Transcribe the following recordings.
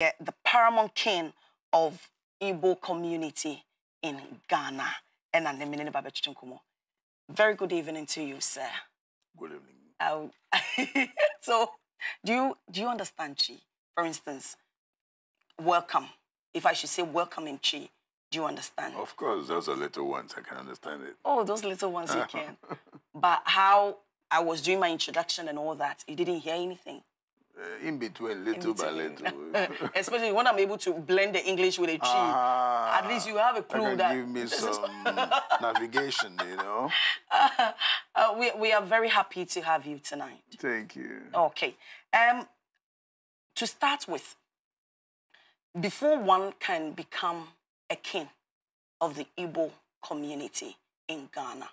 the paramount king of Igbo community in Ghana. and I'm the Very good evening to you, sir. Good evening. so, do you, do you understand Chi? For instance, welcome. If I should say welcome in Chi, do you understand? Of course, those are little ones. I can understand it. Oh, those little ones you can. but how I was doing my introduction and all that, you didn't hear anything uh, in between, little in between. by little. Especially when I'm able to blend the English with a Chi. Ah, At least you have a clue that. Give me some navigation, you know. Uh, uh, we, we are very happy to have you tonight. Thank you. Okay. Um, to start with, before one can become a king of the Igbo community in Ghana,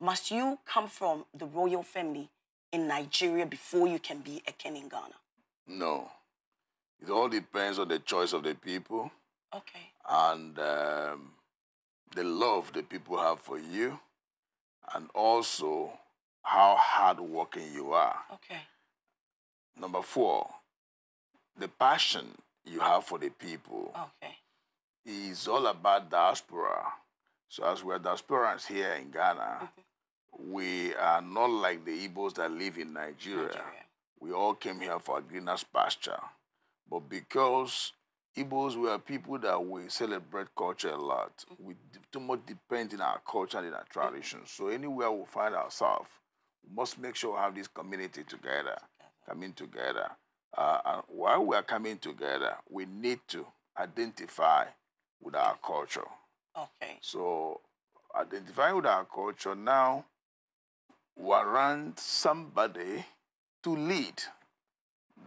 must you come from the royal family in Nigeria before you can be a king in Ghana? No. It all depends on the choice of the people. Okay. And um, the love the people have for you, and also how hardworking you are. Okay. Number four, the passion you have for the people. Okay. Is all about diaspora. So as we're diasporans here in Ghana, mm -hmm. we are not like the Igbos that live in Nigeria. Nigeria. We all came here for greener pasture. But because Igbos were people that we celebrate culture a lot, we too much depend in our culture and in our traditions. So anywhere we find ourselves, we must make sure we have this community together, coming together. Uh, and while we are coming together, we need to identify with our culture. Okay. So identifying with our culture now warrants somebody to lead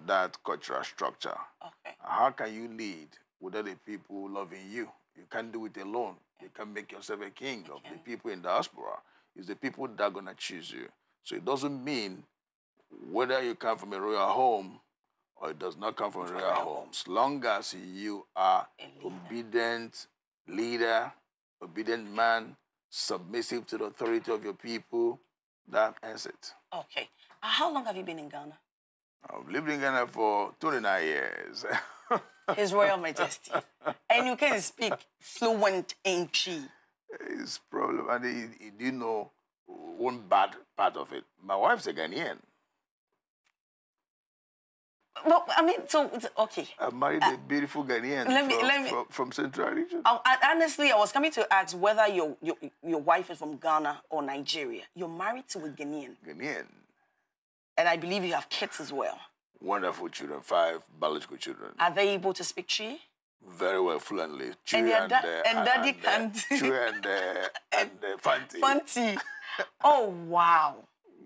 that cultural structure. Okay. How can you lead with other people loving you? You can't do it alone. You can't make yourself a king okay. of the people in diaspora. It's the people that are going to choose you. So it doesn't mean whether you come from a royal home or it does not come from a royal home. As long as you are leader. obedient leader, obedient man, submissive to the authority of your people, that ends it. Okay. Uh, how long have you been in Ghana? I've lived in Ghana for 29 years. His Royal Majesty. and you can speak fluent Inchi. It's problem. And he, he didn't know one bad part of it. My wife's a Ghanaian. Well, I mean, so okay. I married uh, a beautiful Ghanaian let me, from, let me, from, from Central Region. I, oh, I, honestly, I was coming to ask whether your, your your wife is from Ghana or Nigeria. You're married to a Ghanaian. Ghanaian. And I believe you have kids as well. Wonderful children, five biological children. Are they able to speak Chi? Very well, fluently. Chi and, uh, uh, and, uh, and, and Daddy can't. Chi and, uh, and uh, Fanti. Fanti. oh wow,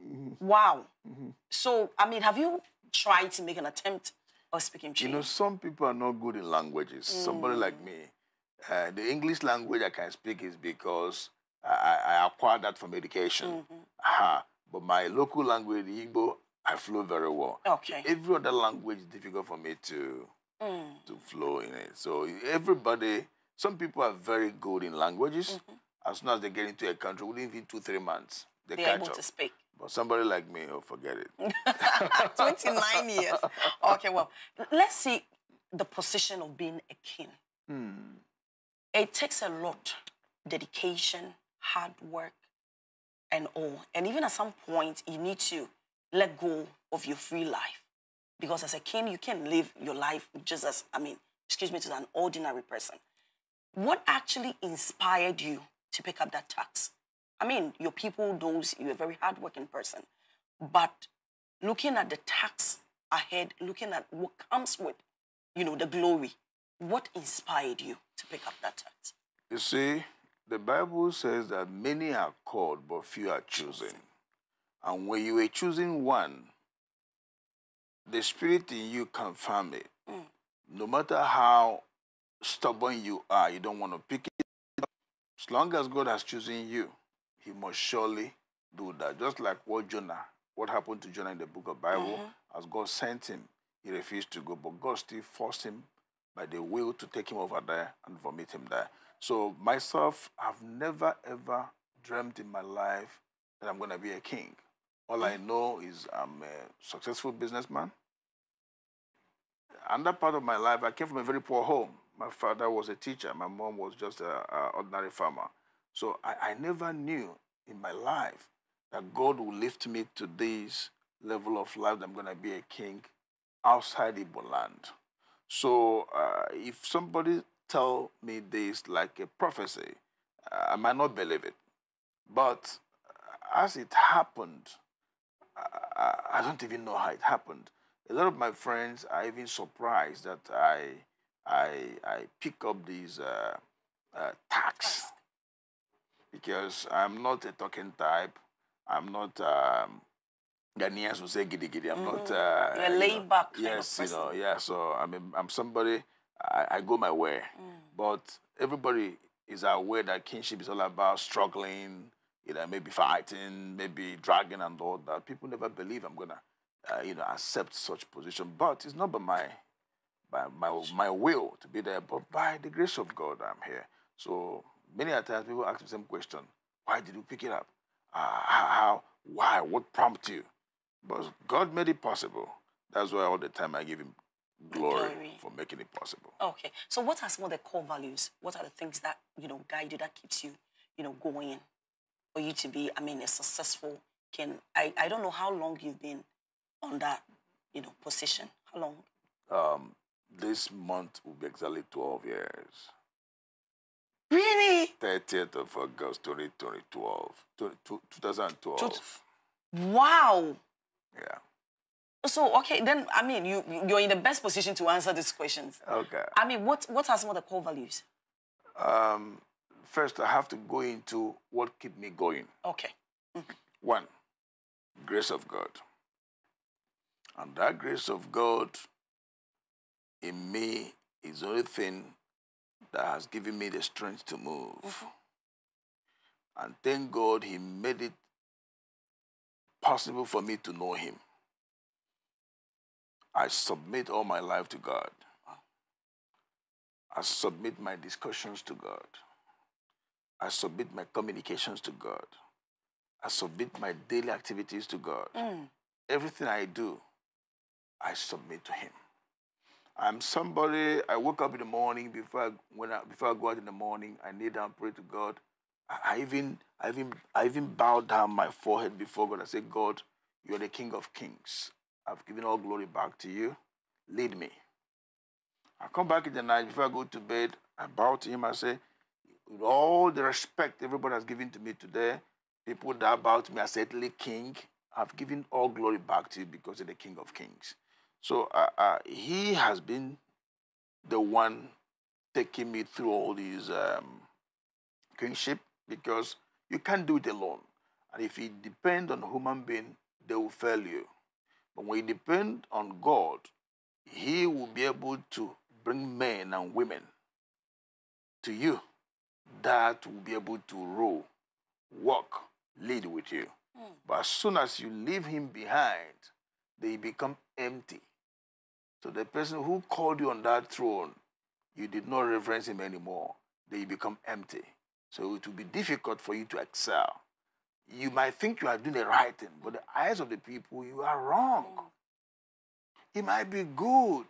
mm-hmm. wow. Mm-hmm. So I mean, have you try to make an attempt of speaking Chinese? You know, some people are not good in languages. Mm. Somebody like me, uh, the English language I can speak is because I, I acquired that from education. Mm -hmm. But my local language, Igbo, I flow very well. Okay. Every other language is difficult for me to mm. to flow in it. So everybody, some people are very good in languages. Mm -hmm. As soon as they get into a country, within two three months, they They're able to speak. But somebody like me, oh, forget it. 29 years. Okay, well, let's see the position of being a king. Hmm. It takes a lot dedication, hard work, and all. And even at some point, you need to let go of your free life. Because as a king, you can't live your life just as, I mean, excuse me, to an ordinary person. What actually inspired you to pick up that tax? I mean, your people knows you're a very hardworking person. But looking at the tax ahead, looking at what comes with, you know, the glory, what inspired you to pick up that tax? You see, the Bible says that many are called, but few are chosen. And when you were choosing one, the spirit in you confirm it. Mm. No matter how stubborn you are, you don't want to pick it up. As long as God has chosen you, he must surely do that. Just like what Jonah, what happened to Jonah in the book of Bible, mm -hmm. as God sent him, he refused to go, but God still forced him by the will to take him over there and vomit him there. So myself, I've never ever dreamed in my life that I'm going to be a king. All I mm. know is I'm a successful businessman. And that part of my life, I came from a very poor home. My father was a teacher. My mom was just an ordinary farmer. So I, I never knew in my life that God will lift me to this level of life that I'm going to be a king outside Igbo land. So uh, if somebody tell me this like a prophecy, uh, I might not believe it. But uh, as it happened, I, uh, I, don't even know how it happened. A lot of my friends are even surprised that I I, I pick up these uh, uh, tax because I'm not a talking type. I'm not. Um, Ghanaians will say giddy giddy. I'm mm -hmm. not. Mm-hmm. Uh, a are laid back. yes, you know. Yeah. So I mean, I'm somebody. I, I go my way, mm. but everybody is aware that kinship is all about struggling. You know, maybe fighting, maybe dragging and all that. People never believe I'm gonna, uh, you know, accept such position. But it's not by my, by my my will to be there, but by the grace of God, I'm here. So many a times people ask the same question. Why did you pick it up? Uh, how? Why? What prompted you? But God made it possible. That's why all the time I give him glory, glory, for making it possible. Okay. So what are some of the core values? What are the things that, you know, guide you, that keeps you, you know, going for you to be, I mean, a successful can I, I don't know how long you've been on that, you know, position. How long? Um, this month will be exactly 12 years. Really? 30th of August 2012. 2012. Wow. Yeah. So okay, then I mean you you're in the best position to answer these questions. Okay. I mean, what what are some of the core values? Um, first, I have to go into what keep me going. Okay. Mm -hmm. One, grace of God. And that grace of God in me is the only thing that has given me the strength to move. And thank God he made it possible for me to know him. I submit all my life to God. I submit my discussions to God. I submit my communications to God. I submit my daily activities to God. Mm. Everything I do, I submit to Him. I'm somebody, I wake up in the morning before I, when I, before I go out in the morning, I kneel down, pray to God. I, I even, I even, I even bow down my forehead before God. I say, God, you are the King of Kings. I've given all glory back to you. Lead me. I come back in the night before I go to bed. I bow to Him. I say, with all the respect everybody has given to me today, people that bow to me, I said, King, I've given all glory back to you because you're the King of Kings. So uh, uh, he has been the one taking me through all these um, kingship because you can't do it alone. And if you depend on human being, they will fail you. But when you depend on God, he will be able to bring men and women to you that will be able to rule, walk, lead with you. Mm. But as soon as you leave him behind, they become empty. So the person who called you on that throne, you did not reverence him anymore. Then you become empty. So it will be difficult for you to excel. You might think you are doing the right thing, but the eyes of the people, you are wrong. It might be good,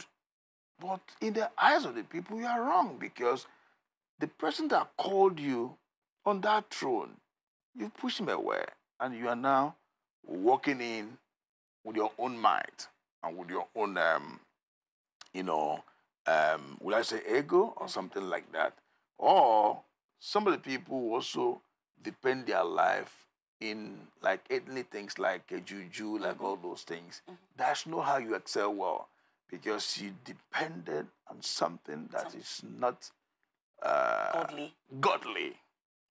but in the eyes of the people, you are wrong because the person that called you on that throne, you pushed him away, and you are now walking in with your own mind and with your own um, you know, um, I say ego or mm-hmm. something like that? Or some of the people also depend their life in like ethnic things like a juju, like all those things. Mm -hmm. That's not how you excel well because you depended on something that something. is not uh, godly. godly.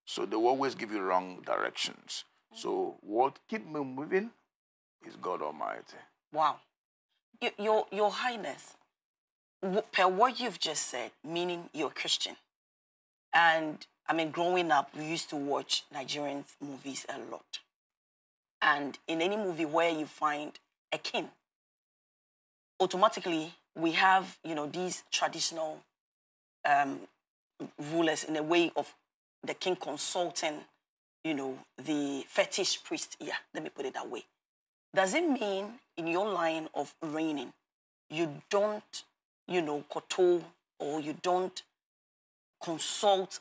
So they will always give you wrong directions. Mm -hmm. So what keep me moving is God Almighty. Wow. Y your, your Highness, per what you've just said, meaning you're Christian, and I mean, growing up, we used to watch Nigerian movies a lot. And in any movie where you find a king, automatically we have, you know, these traditional um, rulers in a way of the king consulting, you know, the fetish priest. Yeah, let me put it that way. Does it mean in your line of reigning, you don't you know, koto or you don't consult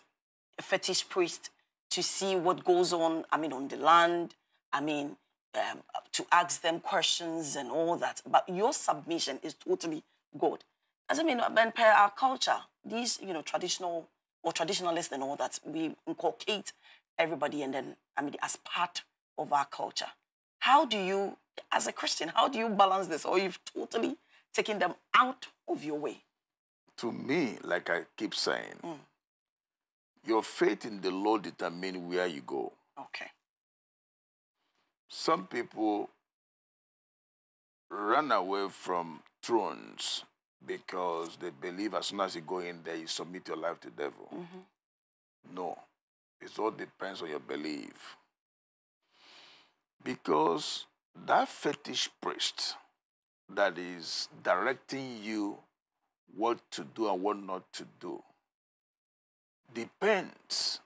a fetish priest to see what goes on, I mean, on the land, I mean, um, to ask them questions and all that. But your submission is totally God. As I mean, and per our culture, these, you know, traditional or traditionalists and all that, we inculcate everybody and then, I mean, as part of our culture. How do you, as a Christian, how do you balance this? Or you've totally taken them out of your way. To me, like I keep saying, mm. your faith in the Lord determines where you go. Okay. Some people run away from thrones because they believe as soon as you go in there, you submit your life to the devil. Mm -hmm. No, it all depends on your belief. Because that fetish priest that is directing you what to do and what not to do depends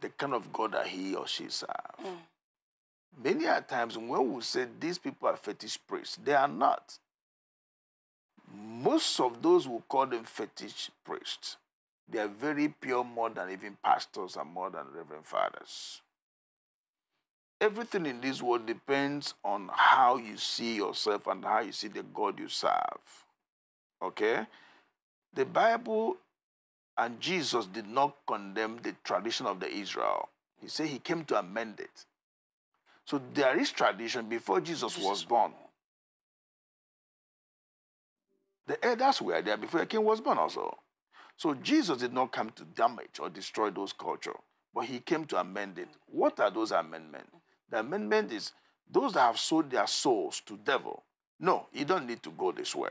the kind of God that he or she serve. Mm. Many a times when we say these people are fetish priests, they are not. Most of those who call them fetish priests, they are very pure more than even pastors and more than reverend fathers everything in this world depends on how you see yourself and how you see the God you serve. Okay? The Bible and Jesus did not condemn the tradition of the Israel. He said he came to amend it. So there is tradition before Jesus, was born. The elders were there before the king was born also. So Jesus did not come to damage or destroy those culture, but he came to amend it. What are those amendments? The amendment is those that have sold their souls to devil. No, you don't need to go this way.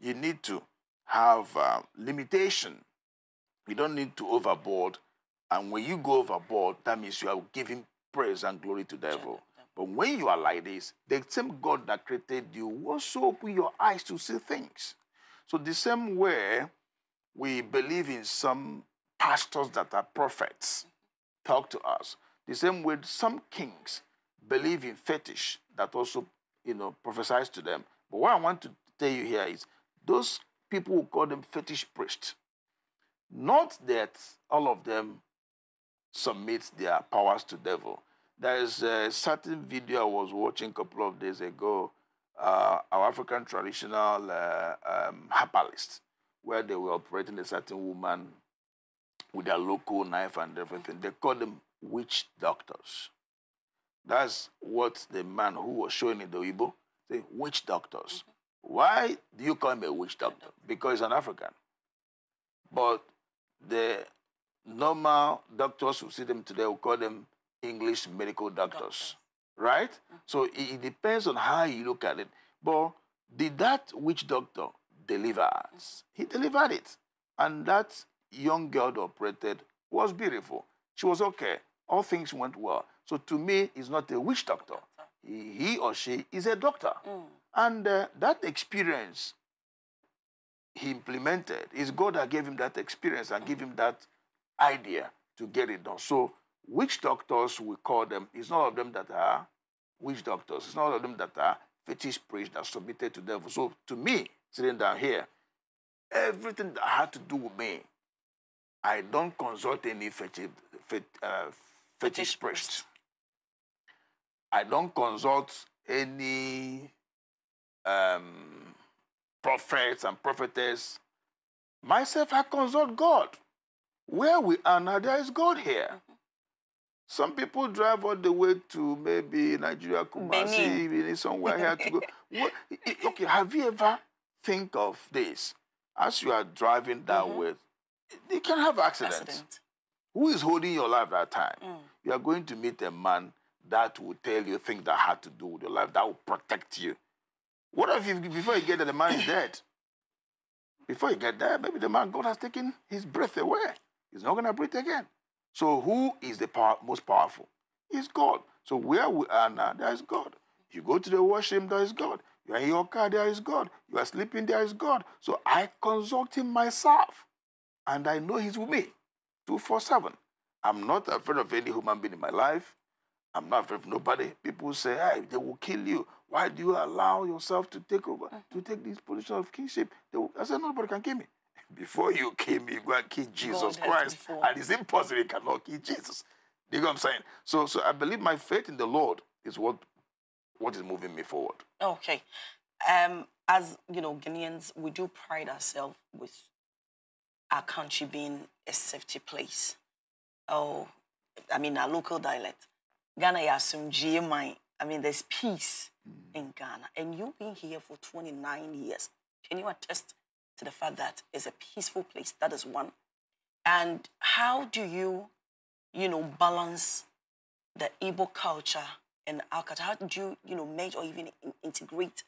You need to have uh, limitation. You don't need to overboard. And when you go overboard, that means you are giving praise and glory to devil. But when you are like this, the same God that created you will also open your eyes to see things. So the same way we believe in some pastors that are prophets talk to us, the same way some kings believe in fetish that also, you know, prophesies to them. But what I want to tell you here is those people who call them fetish priests, not that all of them submit their powers to devil. There is a certain video I was watching a couple of days ago, uh, our African traditional uh, um, herbalist, where they were operating a certain woman with a local knife and everything. They call them witch doctors. That's what the man who was showing in the Igbo say, witch doctors. Mm-hmm. Why do you call him a witch doctor? Because he's an African. But the normal doctors who see them today will call them English medical doctors, right? Mm-hmm. So it, it, depends on how you look at it. But did that witch doctor deliver? Mm-hmm. He delivered it. And that young girl that operated was beautiful. She was okay all things went well. So to me, he's not a witch doctor. He, he or she is a doctor. Mm. And uh, that experience he implemented is God that gave him that experience and gave him that idea to get it done. So witch doctors, we call them, it's not of them that are witch doctors. It's not of them that are fetish priests that submitted to devil. So to me, sitting down here, everything that had to do with me, I don't consult any fetish, uh, fetish priest. I don't consult any um, prophets and prophetess. Myself, I consult God. Where we are now, there is God here. Mm-hmm. Some people drive all the way to maybe Nigeria, Kumasi, Benin. somewhere here to go. What, okay, have you ever think of this? As you are driving that mm -hmm. way, you can have accidents. Accident. Who is holding your life that time? Mm. You are going to meet a man that will tell you things that had to do with your life, that will protect you. What if you, before you get there, the man is dead? Before you get there, maybe the man, God has taken his breath away. He's not going to breathe again. So who is the power, most powerful? It's God. So where we are now, there is God. You go to the washroom, there is God. You are in your car, there is God. You are sleeping, there is God. So I consult him myself, and I know he's with me. 247. I'm not afraid of any human being in my life. I'm not afraid of nobody. People say, hey, they will kill you. Why do you allow yourself to take over, to mm-hmm. take this position of kingship? Will, I said, nobody can kill me. Before you kill me, you go and kill Jesus God Christ. And it's impossible you cannot kill Jesus. You know what I'm saying? So, so I believe my faith in the Lord is what, what is moving me forward. Okay. Um, as, you know, Ghanaians, we do pride ourselves with our country being a safety place. Oh, I mean, our local dialect. Ghana, you assume GMI. I mean, there's peace mm. in Ghana. And you've been here for 29 years. Can you attest to the fact that it's a peaceful place? That is one. And how do you, you know, balance the Igbo culture and our culture? How do you, you know, merge or even integrate,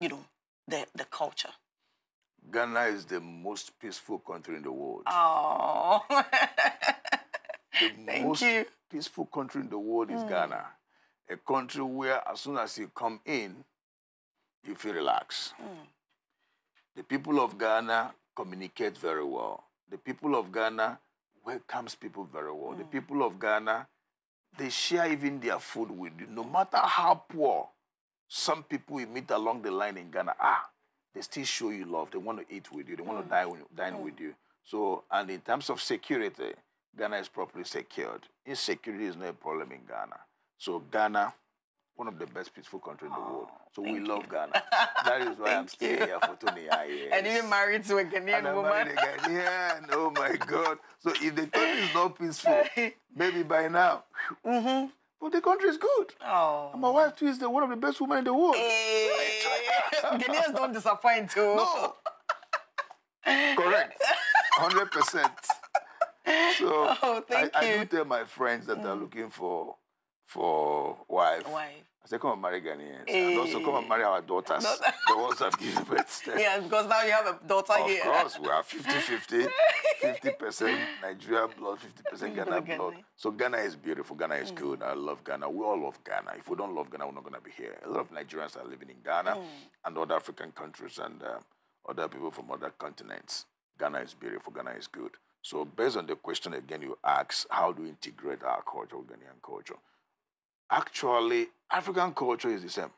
you know, the, the culture? Ghana is the most peaceful country in the world. Oh. the Thank most you. peaceful country in the world is mm. Ghana. A country where as soon as you come in, you feel relaxed. Mm. The people of Ghana communicate very well. The people of Ghana welcomes people very well. Mm. The hmm. people of Ghana, they share even their food with you. No matter how poor some people we meet along the line in Ghana are, ah, they still show you love. They want to eat with you. They want mm. to dine, dine mm. with you. So, and in terms of security, Ghana is properly secured. Insecurity is not a problem in Ghana. So Ghana, one of the best peaceful country in the oh, world. So we love you. Ghana. That is why I'm staying here for 20 years. And even married to a Ghanaian and woman. oh my God. So if the country is not peaceful, maybe by now, mm -hmm. But the country is good. Oh. And my wife too is the, one of the best women in the world. Hey. Eh, Ghanaians don't disappoint too. No. Correct. 100%. So oh, I, I, do tell my friends that mm. are looking for for wife. Wife. I said, come and marry Ghanaians. Hey. And also come and eh. marry our daughters, the ones that give birth. yeah, because now you have a daughter of here. Of course, we are 50-50, 50% Nigeria blood, 50% Ghana blood. So Ghana is beautiful, Ghana is mm. good. I love Ghana. We all love Ghana. If we don't love Ghana, we're not going to be here. A lot of Nigerians are living in Ghana mm. and other African countries and um, other people from other continents. Ghana is beautiful, Ghana is good. So based on the question again you asked, how do we integrate our culture, Ghanaian culture? actually, African culture is the same.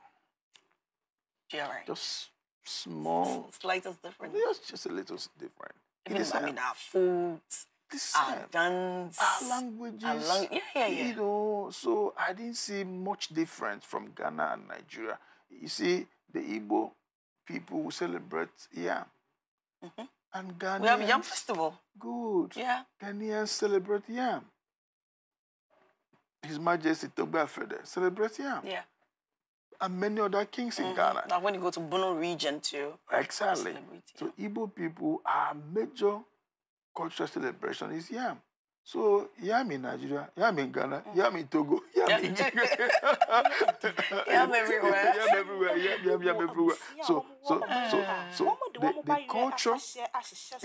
right. Just small. S slightest difference. Just just a little different. Even, I um, mean, our foods, our dance, our languages. Our lang yeah, yeah, yeah. You know, so I didn't see much difference from Ghana and Nigeria. You see, the Igbo people who celebrate yam. Mm -hmm. And Ghanaians. We have yam festival. Good. Yeah. Ghanaians celebrate yam. His Majesty Togba Fede celebrates him. Yeah. And many other kings mm -hmm. in mm-hmm. Ghana. Now, when you go to Bono region too. Exactly. So Igbo people, our major cultural celebration is yam. So yam in Nigeria, yam in Ghana, mm. yam in Togo, yam in yam everywhere, yam everywhere, yam yam yam everywhere. So so so so the, the culture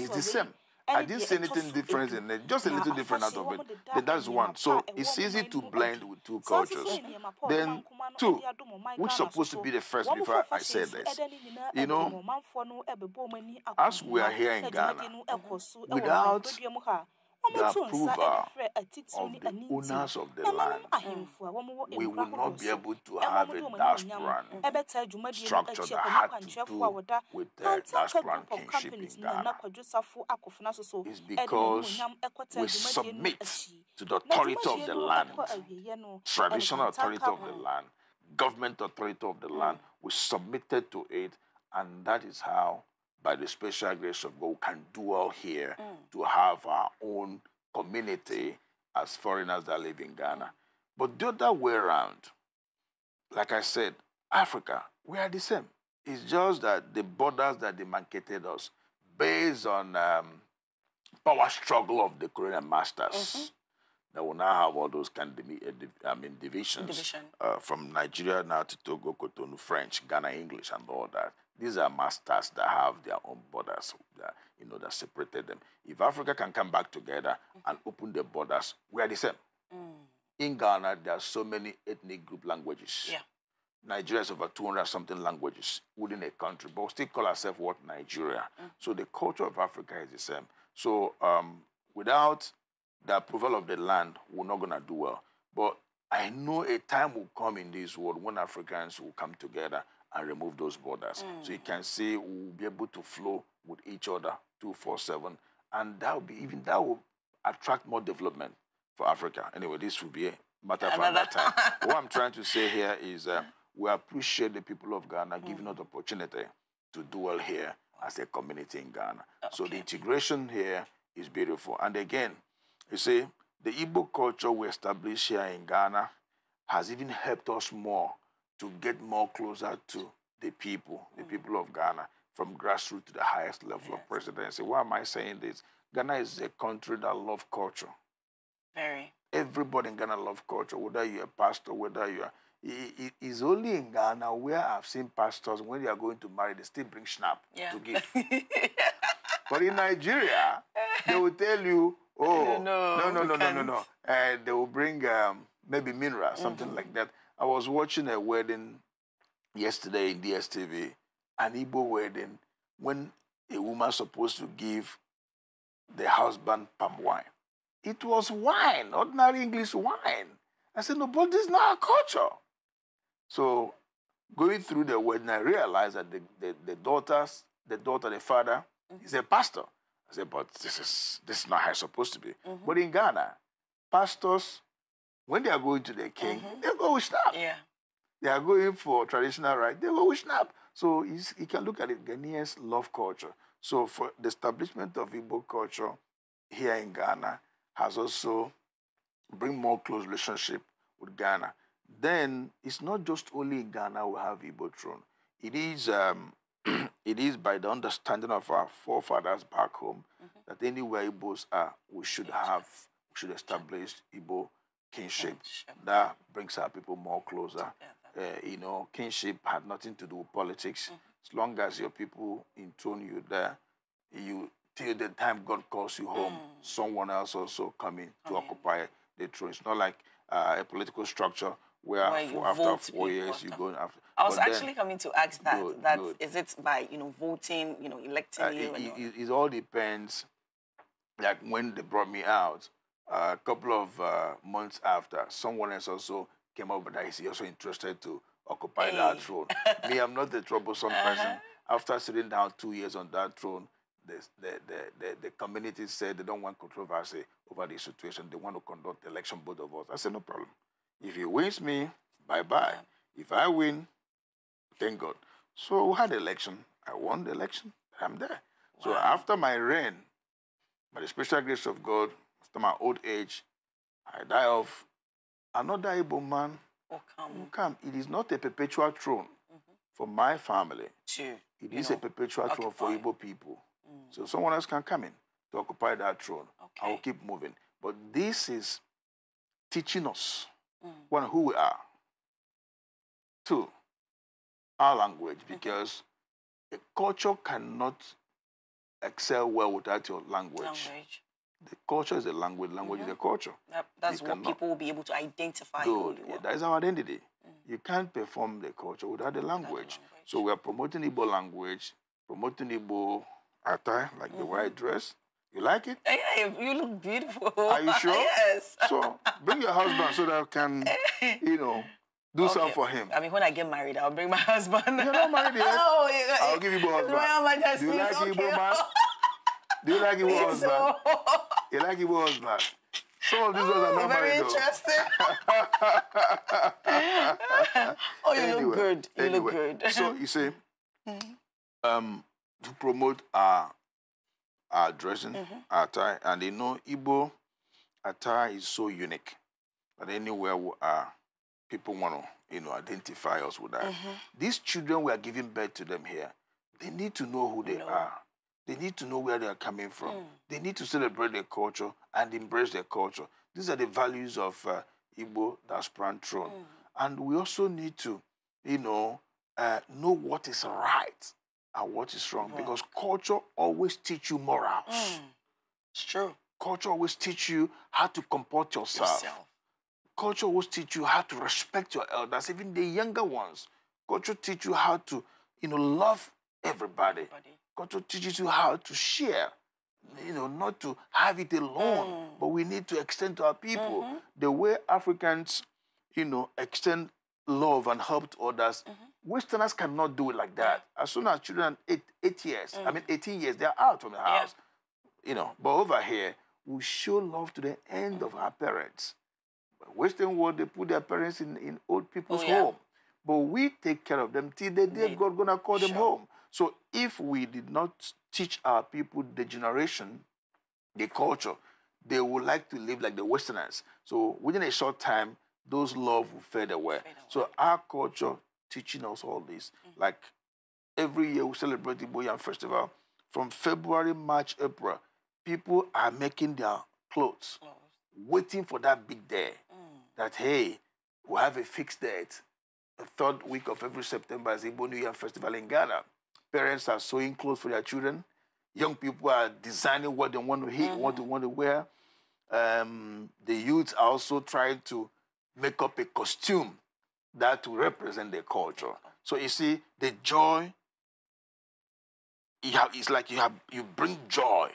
is the same. I didn't see anything different in it, just a little different out of it. That is one. So it's easy to blend with two cultures. Then two, which is supposed to be the first before I say this. You know, as we are here in Ghana, without the approval of the owners of the land, we will not be able to have a diasporan structure that had to do with the diasporan kingship in Ghana. It's because we submit to the authority of the land, traditional authority of the land, government authority of the mm. land. We submitted to it, and that is how by the special grace of God, we can do all here mm. to have our own community as foreigners that live in Ghana. But the other way around, like I said, Africa, we are the same. It's just that the borders that demarcated us, based on um, power struggle of the Korean masters, mm -hmm. that will now have all those kind of uh, I mean, divisions Division. uh, from Nigeria now to Togo, Cotonou, French, Ghana, English, and all that. These are masters that have their own borders, that, you know, that separated them. If Africa can come back together and open the borders, we are the same. Mm. In Ghana, there are so many ethnic group languages. Yeah. Nigeria is over 200 something languages within a country, but still call ourselves what Nigeria. Mm. So the culture of Africa is the same. So um, without the approval of the land, we're not going to do well. But I know a time will come in this world when Africans will come together and remove those borders. Mm. So you can say we'll be able to flow with each other 247. And that will be even that will attract more development for Africa. Anyway, this will be a matter for another time. what I'm trying to say here is uh, we appreciate the people of Ghana mm. giving us the opportunity to dwell here as a community in Ghana. Okay. So the integration here is beautiful. And again, you see, the Igbo culture we established here in Ghana has even helped us more to get more closer to the people, the mm. people of Ghana, from grassroots to the highest level yes. of presidency. Why am I saying this? Ghana is a country that loves culture. Very. Everybody in Ghana loves culture, whether you're a pastor, whether you're. it's only in Ghana where I've seen pastors, when they are going to marry, they still bring schnapp yeah. to give. but in Nigeria, they will tell you, oh, no, no, no, no, no, no, no. Uh, they will bring um, maybe mineral, something mm -hmm. like that. I was watching a wedding yesterday in DSTV, an Igbo wedding, when a woman's supposed to give the husband palm wine. It was wine, ordinary English wine. I said, no, but this is not our culture. So going through the wedding, I realized that the, the, the daughters, the daughter, the father, mm-hmm. is a pastor. I said, but this is this is not how it's supposed to be. Mm-hmm. But in Ghana, pastors when they are going to the king, mm -hmm. they go with snap. Yeah. They are going for traditional right, they go with snap. So you can look at it, Ghanaians love culture. So for the establishment of Igbo culture here in Ghana has also bring more close relationship with Ghana. Then it's not just only in Ghana we have Igbo throne. It is um, it is by the understanding of our forefathers back home mm -hmm. that anywhere Igbos are, we should have, we should establish Igbo kinship. That brings our people more closer. Uh, you know, kinship had nothing to do with politics. Mm -hmm. As long as your people intone you there, you till the time God calls you home, mm. someone else also coming to okay. occupy the throne. It's not like uh, a political structure where, where four, after four years you go after. I was actually then, coming to ask that. Good, that good. is it by you know voting, you know electing uh, you. It, it, it, all depends. Like when they brought me out, a couple of uh, months after, someone else also came up that he's also interested to occupy hey. that throne. Me, I'm not the troublesome uh -huh. person. Uh-huh. After sitting down two years on that throne, the, the, the, the, community said they don't want controversy over the situation. They want to conduct election, both of us. I said, no problem. If he wins me, bye-bye. If I win, thank God. So we had election. I won the election. I'm there. Wow. So after my reign, by the special grace of God, to my old age, I die of. another Igbo man will oh, come. come. It is not a perpetual throne mm -hmm. for my family. It is know, a perpetual occupy. throne for Igbo people. Mm. So someone else can come in to occupy that throne. Okay. I will keep moving. But this is teaching us, mm. one, who we are. Two, our language, mm-hmm. because -hmm. a culture cannot excel well without your language. language. The culture is a language. Language mm -hmm. is mm-hmm. a culture. Yep, that's you what cannot. people will be able to identify. Good. Yeah, that is our identity. Mm. You can't perform the culture without the language. Without language. So we are promoting Igbo language, promoting Igbo attire, like mm -hmm. the white mm-hmm. dress. You like it? Eh, yeah, you look beautiful. Are you sure? yes. So bring your husband so that I can, eh. you know, do okay. something for him. I mean, when I get married, I'll bring my husband. You're not married yet. oh, yeah. I'll give you both husband. Royal Majesty. Do you like okay. Igbo man? Do you like it was so. You like it was man? So this was another very though. interesting. oh, you anyway, look good. You anyway, look good. so you see, mm-hmm. um, to promote our our dressing, mm -hmm. our tie, and you know, Igbo attire is so unique that anywhere are, uh, people want to you know, identify us with that. Mm -hmm. These children we are giving birth to them here, they need to know who they no. are. They need to know where they are coming from. Mm. They need to celebrate their culture and embrace their culture. These are the values of uh, Igbo that's throne. Mm. And we also need to, you know, uh, know what is right and what is wrong yeah. because culture always teach you morals. Mm. It's true. Culture always teach you how to comport yourself. yourself. Culture always teach you how to respect your elders, even the younger ones. Culture teach you how to, you know, love everybody. everybody. God teaches you how to share you know, not to have it alone, mm. but we need to extend to our people mm -hmm. the way Africans, you know, extend love and help to others. Mm -hmm. Westerners cannot do it like that. As soon as children eight, eight years, I mm. mean 18 years, they're out from the house, yeah. you know. But over here, we show love to the end of our parents. But Western world, they put their parents in, in old people's oh, yeah. home, but we take care of them till the day God gonna call sure. them home. So if we did not teach our people the generation, the culture, they would like to live like the Westerners. So within a short time, those love will fade away. So our culture teaching us all this. Mm -hmm. Like every year we celebrate the Boyan Festival. From February, March, April, people are making their clothes, waiting for that big day. Mm. That hey, we have a fixed date. The third week of every September is the New Year Festival in Ghana. Parents are sewing clothes for their children. Young people are designing what they want to hit, mm-hmm. what they mm-hmm. want to wear. Um, the youth are also trying to make up a costume that to represent their culture. So you see, the joy. Have, it's like you have you bring joy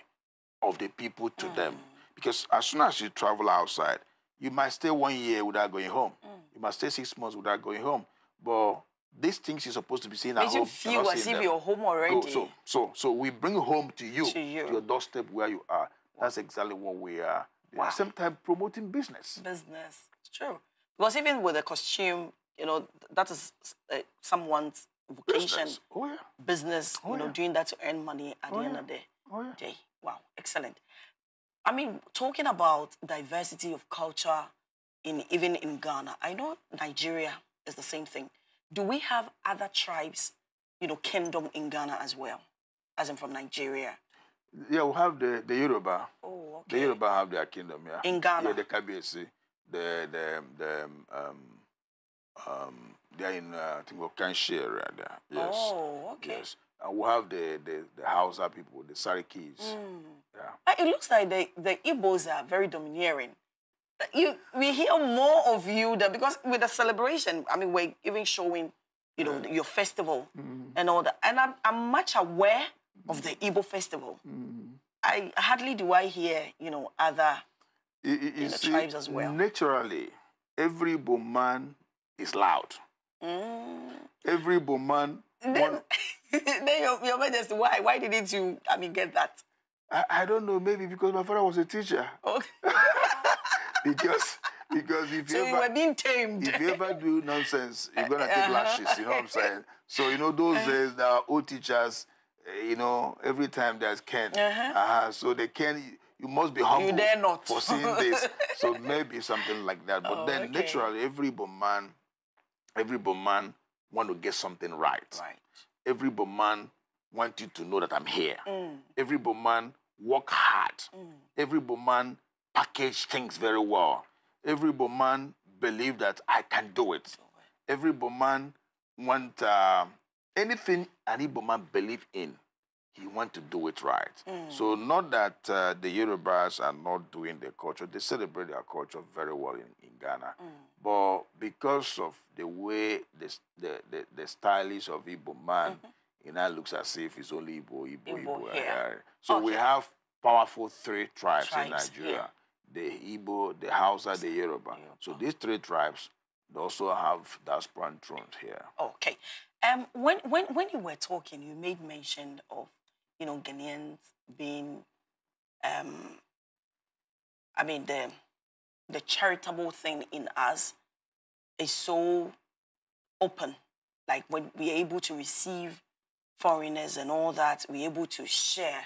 of the people to mm. them mm-hmm. because as soon as you travel outside, you might stay one year without going home. Mm. You might stay six months without going home. But these things you're supposed to be seeing at Did home. you feel as if you're home already? Go, so, so, so we bring home to you, to you, to your doorstep where you are. That's exactly what we are. Wow. At the same time, promoting business. Business, it's true. Because even with a costume, you know, that is uh, someone's vocation. Business, oh, yeah. business oh, you know, yeah. doing that to earn money at oh, the end of the day. Oh, yeah. day. Wow, excellent. I mean, talking about diversity of culture in even in Ghana, I know Nigeria is the same thing do we have other tribes, you know, kingdom in Ghana as well, as I'm from Nigeria? Yeah, we have the, the Yoruba. Oh, okay. The Yoruba have their kingdom, yeah. In Ghana? Yeah, the Kabesi, the, the, the, um, um, um, they're in, uh, I think, Okanshi area right there. Yes. Oh, okay. Yes. And we have the, the, the Hausa people, the Sarikis. Mm. Yeah. It looks like the, the Igbos are very domineering you we hear more of you because with the celebration, I mean, we're even showing, you know, your festival mm. and all that. And I'm, I'm much aware of the mm-hmm. Igbo festival. Mm. I hardly do I hear, you know, other you know, tribes as well. Naturally, every man is loud. Mm. Every Boman. Then, then your, your majesty, why? Why didn't you, I mean, get that? I, I don't know, maybe because my father was a teacher. Okay. Oh. because because if so you, ever, were being tamed. If you ever do nonsense, you're gonna take uh -huh. lashes. You know what I'm saying? So you know those uh-huh. days, our old teachers, eh, you know, every time there's Ken, uh -huh. Uh uh-huh, so they can. You must be humble you dare not. for seeing this. so maybe something like that. But oh, then okay. naturally, every man, every man want to get something right. Right. Every man want you to know that I'm here. Mm. Every man work hard. Mm. Every man package things very well. Every man believe that I can do it. Every man want uh, anything Any Igbo man believe in, he want to do it right. Mm. So not that uh, the Yorubas are not doing their culture. They celebrate their culture very well in, in Ghana. Mm. But because of the way the, the, the, the stylist of Igbo man, it mm-hmm. now looks as if it's only Igbo, Igbo, Igbo. Igbo. Yeah. So okay. we have powerful three tribes, tribes in Nigeria. Yeah the Ibo, the Hausa, the Yoruba. Yoruba. So these three tribes also have diaspora thrones here. Okay. Um, when, when, when you were talking, you made mention of, you know, Ghanaians being, um, I mean, the, the charitable thing in us is so open. Like when we're able to receive foreigners and all that, we're able to share.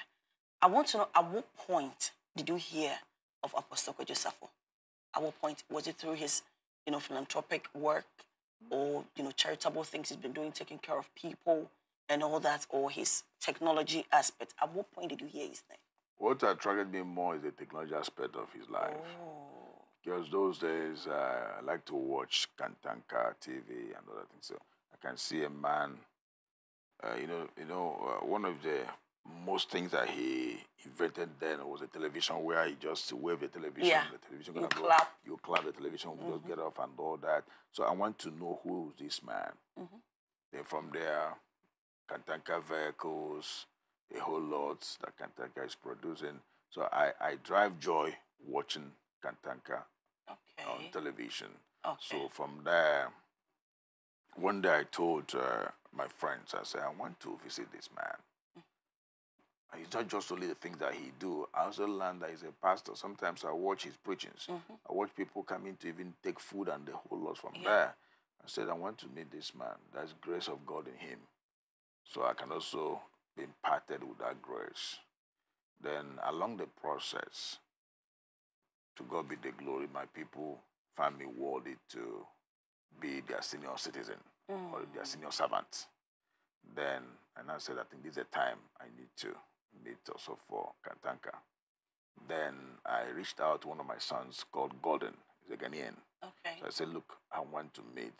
I want to know at what point did you hear of Apostle Josepho? At what point was it through his, you know, philanthropic work or you know charitable things he's been doing, taking care of people and all that, or his technology aspect? At what point did you hear his name? What attracted me more is the technology aspect of his life. Oh. Because those days uh, I like to watch Kantanka TV and other things. So I can see a man, uh, you know, you know, uh, one of the most things that he invented then was a television where he just wave the television, yeah. the television gonna you go, clap. you clap the television, mm -hmm. just mm-hmm. get off and all that. So I want to know who this man. Mm -hmm. Then from there, Kantanka vehicles, a whole lot that Kantanka is producing. So I, I drive joy watching Kantanka okay. on television. Okay. So from there, one day I told uh, my friends, I said, I want to visit this man it's not just only the things that he do. I also learned that he's a pastor. Sometimes I watch his preachings. Mm -hmm. I watch people coming to even take food and the whole lot from yeah. there. I said, I want to meet this man. There's grace of God in him. So I can also be imparted with that grace. Then along the process, to God be the glory, my people find me worthy to be their senior citizen mm. or their mm. senior servant. Then, and I said, I think this is the time I need to Meet also for Katanka. Then I reached out to one of my sons called Golden, He's a Ghanaian. Okay. So I said, look, I want to meet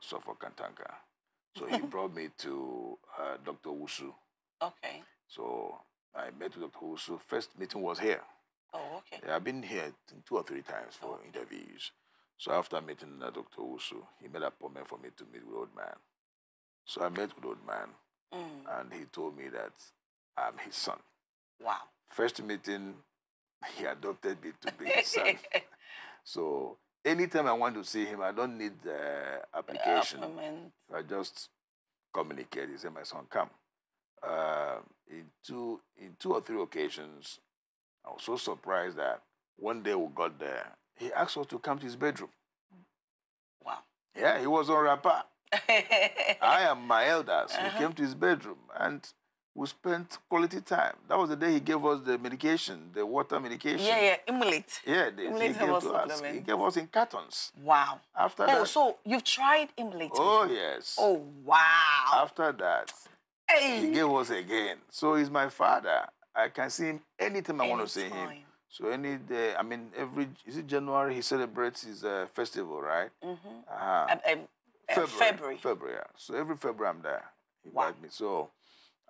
for Kantanka. So he brought me to uh, Dr. Wusu. Okay. So I met with Dr. Wusu. First meeting was here. Oh, okay. Yeah, I've been here two or three times for okay. interviews. So after meeting uh, Dr. Wusu, he made an appointment for me to meet with old man. So I met with old man, mm. and he told me that I'm his son. Wow. First meeting, he adopted me to be his son. so anytime I want to see him, I don't need the application. The I just communicate. He said, my son, come. Uh, in, two, in two or three occasions, I was so surprised that one day we got there, he asked us to come to his bedroom. Wow. Yeah, he was on rapper. I am my elders. Uh -huh. We came to his bedroom and we spent quality time. That was the day he gave us the medication, the water medication. Yeah, yeah, Imulate. Yeah, the, he gave us, us. He gave us in cartons. Wow. After oh, that. Oh, so you've tried Imulate? Oh yes. Oh wow. After that, hey. he gave us again. So he's my father. I can see him anytime I want to see him. So any day, I mean, every is it January he celebrates his uh, festival, right? Mm-hmm. Uh -huh. um, um, uh, February, February. February. Yeah. So every February I'm there. He wow. me. So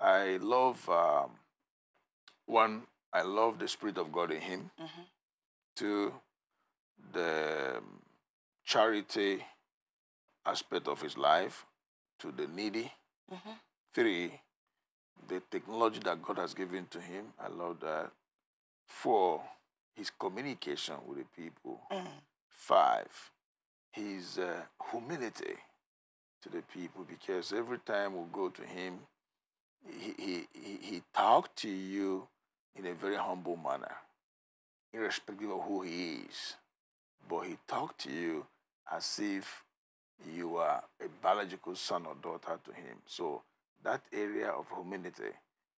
I love um, one. I love the spirit of God in him. mm -hmm. Two, the um, charity aspect of his life to the needy. Mm -hmm. Three, the technology that God has given to him. I love that. Four, his communication with the people. Mm -hmm. Five, his uh, humility to the people because every time we go to him, he, he, he talked to you in a very humble manner, irrespective of who he is. But he talked to you as if you are a biological son or daughter to him. So that area of humility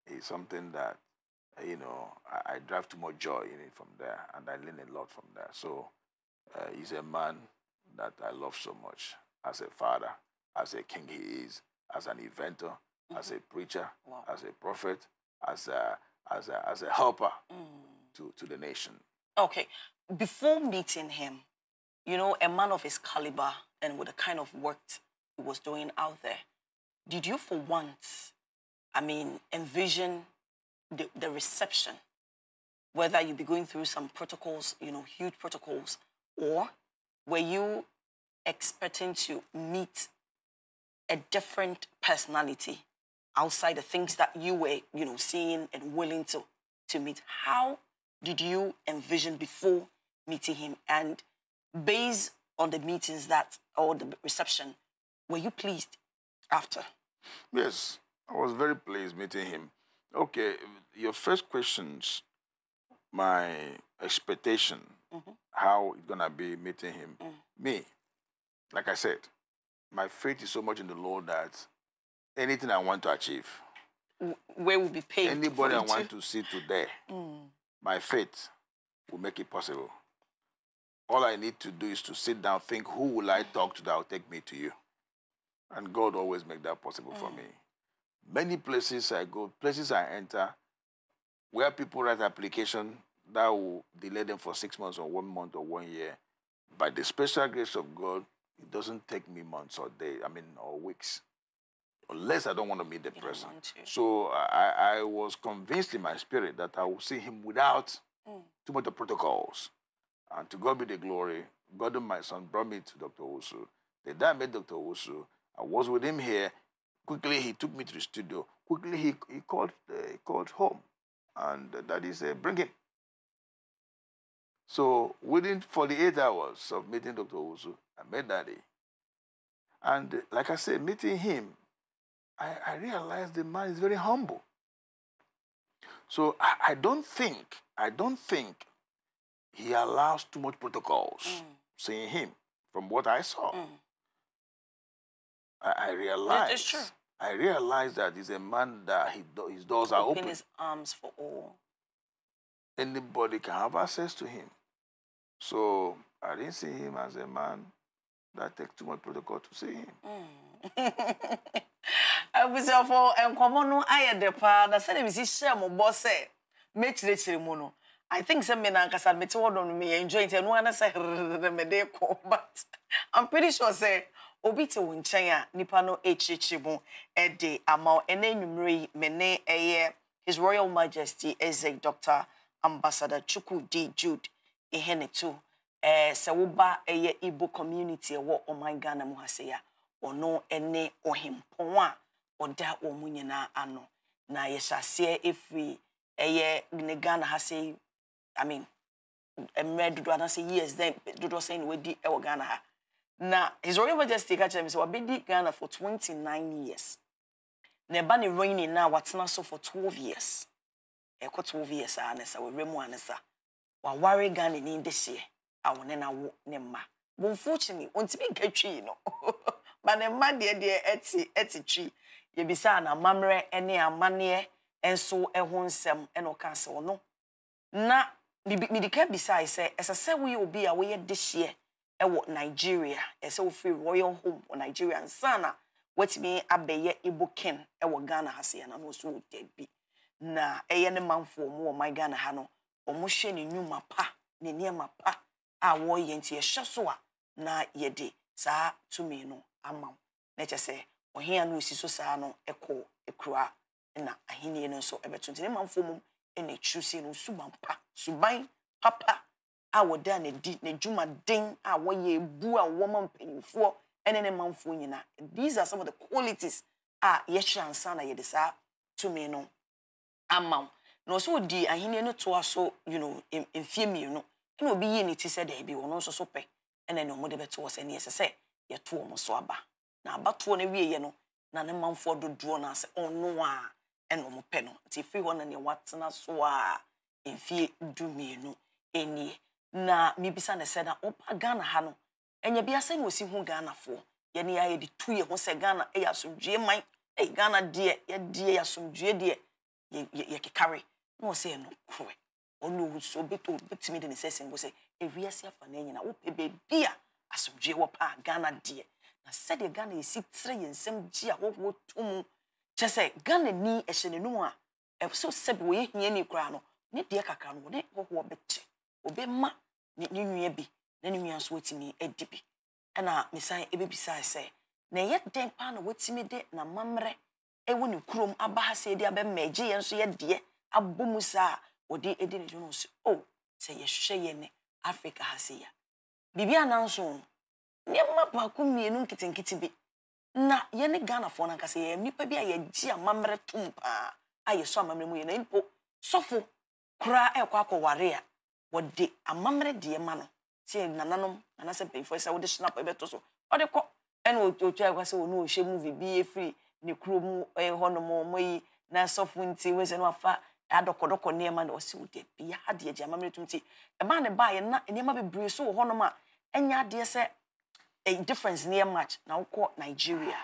is something that, you know, I, I drive to more joy in it from there, and I learn a lot from there. So uh, he's a man that I love so much as a father, as a king he is, as an inventor, mm -hmm. as a preacher, wow. as a prophet, as a, as a, as a helper mm. to, to the nation. Okay. Before meeting him, you know, a man of his caliber and with the kind of work he was doing out there, did you for once, I mean, envision the, the reception, whether you would be going through some protocols, you know, huge protocols, or were you expecting to meet a different personality outside the things that you were, you know, seeing and willing to, to meet. How did you envision before meeting him? And based on the meetings that, or the reception, were you pleased after? Yes, I was very pleased meeting him. Okay, your first questions, my expectation, mm -hmm. how it's gonna be meeting him. Mm. Me, like I said, my faith is so much in the Lord that anything I want to achieve. Where will be paid? Anybody I want eh? to see today, mm. my faith will make it possible. All I need to do is to sit down, think, who will I talk to that will take me to you? And God always make that possible mm. for me. Many places I go, places I enter, where people write application that will delay them for six months or one month or one year. By the special grace of God, it doesn't take me months or days, I mean, or weeks unless I don't want to meet the you person. So I, I was convinced in my spirit that I would see him without mm. too much of protocols. And to God be the glory, God and my son brought me to Dr. Osu. The day I met Dr. Osu, I was with him here. Quickly, he took me to the studio. Quickly, he, he, called, uh, he called home. And daddy said, bring him. So within 48 hours of meeting Dr. Osu, I met daddy. And like I said, meeting him I, I realized the man is very humble. So I, I, don't think, I don't think he allows too much protocols, mm. seeing him, from what I saw. Mm. I, I realized. It's true. I realized that he's a man that he his doors open are open. his arms for all. Anybody can have access to him. So I didn't see him as a man that takes too much protocol to see him. Mm. abusuafo nkɔmɔ no ayɛ dɛ paa na sɛdeɛ mesi hyɛ mo bɔ sɛ mɛkyerɛkyerɛ mu no i think sɛ me na mete hɔ no meyɛ enjoy nti ɛno ana sɛ herere mede kɔ but i'm pretty sure sɛ obi te wo nkyɛn a nipa no akyerɛkyerɛ mu ɛde ama wo yi ɛyɛ his royal majesty eze dr ambassador chukwu d jude ihene ɛɛ sɛ woba ɛyɛ igbo community ɛwɔ ɔman ghana ha sɛ ya ɔno ɛne ɔhempɔn ɔda wɔn mu nyinaa ano na yɛhyɛ aseɛ efiri ɛyɛ ne ghana ha sɛ i mean mmerɛ dodoɔ anaasɛ years then dodoɔ sɛn na wadi ɛwɔ ghana ha na his royal majesty ka kyerɛ me sɛ wabɛdi ghana for twenty nine years na ɛba ne reigning na watena so for twelve years ɛkɔ twelve years a ne sa wɔwura mu a ne sa waware ghana ni de hyeɛ a wɔne na wo ne mma but unfortunately ontumi nka twi no ba ne mma deɛ deɛ ɛte ɛte twi yɛbisa na amammerɛ ne amanneɛ nso ho nsɛm na ɔka sɛ ɔno na medika bisae sɛ ɛsɛ sɛ woyɛ obi a woyɛ dehyeɛ wɔ nigeria ɛsɛ wofiri royal home wɔ nigeria nsa na watumi abɛyɛ igbo ken wɔ ghana ha sɛ yɛna no ɔso wɔ dabi na ɛyɛ ne manfoɔ mu wɔ man ghana ha no wɔhwɛ ne nnwuma pa ne nneɛma pa a wɔreyɛ nti yɛhyɛ so a na yɛde saa tumi no ama wo na kyɛ sɛ ɔhea no ɔsi so saa no ɛkɔ ɛkura na ahenni no nso ɛbɛto nti ne manfoɔ mu ɛna ɛkyiri si no suban pa suban papa a wɔda n'adi n'adwumaden a wɔyɛ ebu a wɔma mpanyinfoɔ ɛne ne manfoɔ nyinaa these are some of the qualities a yɛhyɛ ansa na yɛde saa tumi no ama wo na ɔsɛ ɔdi ahenni no toa so you know mfie mmienu ɛna obi yie ne ti sɛ daabi ɔno nso so pɛ ɛna ne ɔmo de bɛto wɔ sɛ ne yɛsɛ sɛ yɛto ɔmo so aba. na abatoɔ no wieɛ no na ne manfoɔ dodoɔ no ase ɔno a ɛna ɔmo pɛ no nti efiri hɔ na nea watena so a mfie du mmienu enie na mibisa ne sɛ na ɔba ghana ha no ɛnyɛ bi asɛn na osi ho ghanafoɔ yɛne yɛ de tu yɛ ho sɛ ghana ɛyɛ asomdue man ɛyɛ ghana deɛ yɛdeɛ yɛ asomdue deɛ yɛ yɛ kekare na ɔsɛ yɛ no korɛ ɔno nso obetumi de ne sɛ sɛngo sɛ ewiase afa ne nyina wopɛ beebi a asomdue wɔ paa ghana deɛ na sɛdeɛ ghana yɛsi tire yɛn nsɛm gye a wɔwɔ to mu kyɛ sɛ ghana ni ɛhyɛ n'anum a ɛso sɛbi wɔyɛ hia ni koraa no ne deɛ kakra no ne wɔwɔ bɛkyɛ obɛma ne ne nua bi na ne nua nso wɔtumi adi bi ɛna mesan ɛbɛbisa sɛ na ɛyɛ dɛn paa na wɔtumi de na mammerɛ ɛwɔ ne kurom aba ha sɛ ɛde abɛma ɛgye yɛn nso yɛ deɛ abɔ mu saa wɔde ɛdi ne dwom so o sɛ oh, yɛhwɛ yɛn ne africa ha se ya biribi anan so nneɛma baako mmienu nketenkete bi na yɛne ghanafoɔ no ankasa yɛyɛ nnipa bi a yɛgye amammerɛ tom paa a yɛsɔ amammerɛ mu yɛ na mpo sɔfo koraa ɛkɔ akɔware a wɔde amammerɛ deɛ ma no sɛ nananom anaasɛ mpanyinfoɔ sɛ wode snap ɛbɛto so ɔde kɔ ɛna otwa ɛkɔ sɛ ɔno ɔhyɛ mu bibi efiri ne kuro mu ɛyɛ hɔnom ɔmo yi na sɔfo nti wɔsɛ no afa adɔkɔdɔkɔ nneɛma na ɔsɛ wode bia adeɛ gye amammerɛ tom ti ɛmaa ne baayɛ na nneɛma bebree so wɔ hɔnom a ɛnyɛ adeɛ sɛ a difference near much na wokɔ nigeria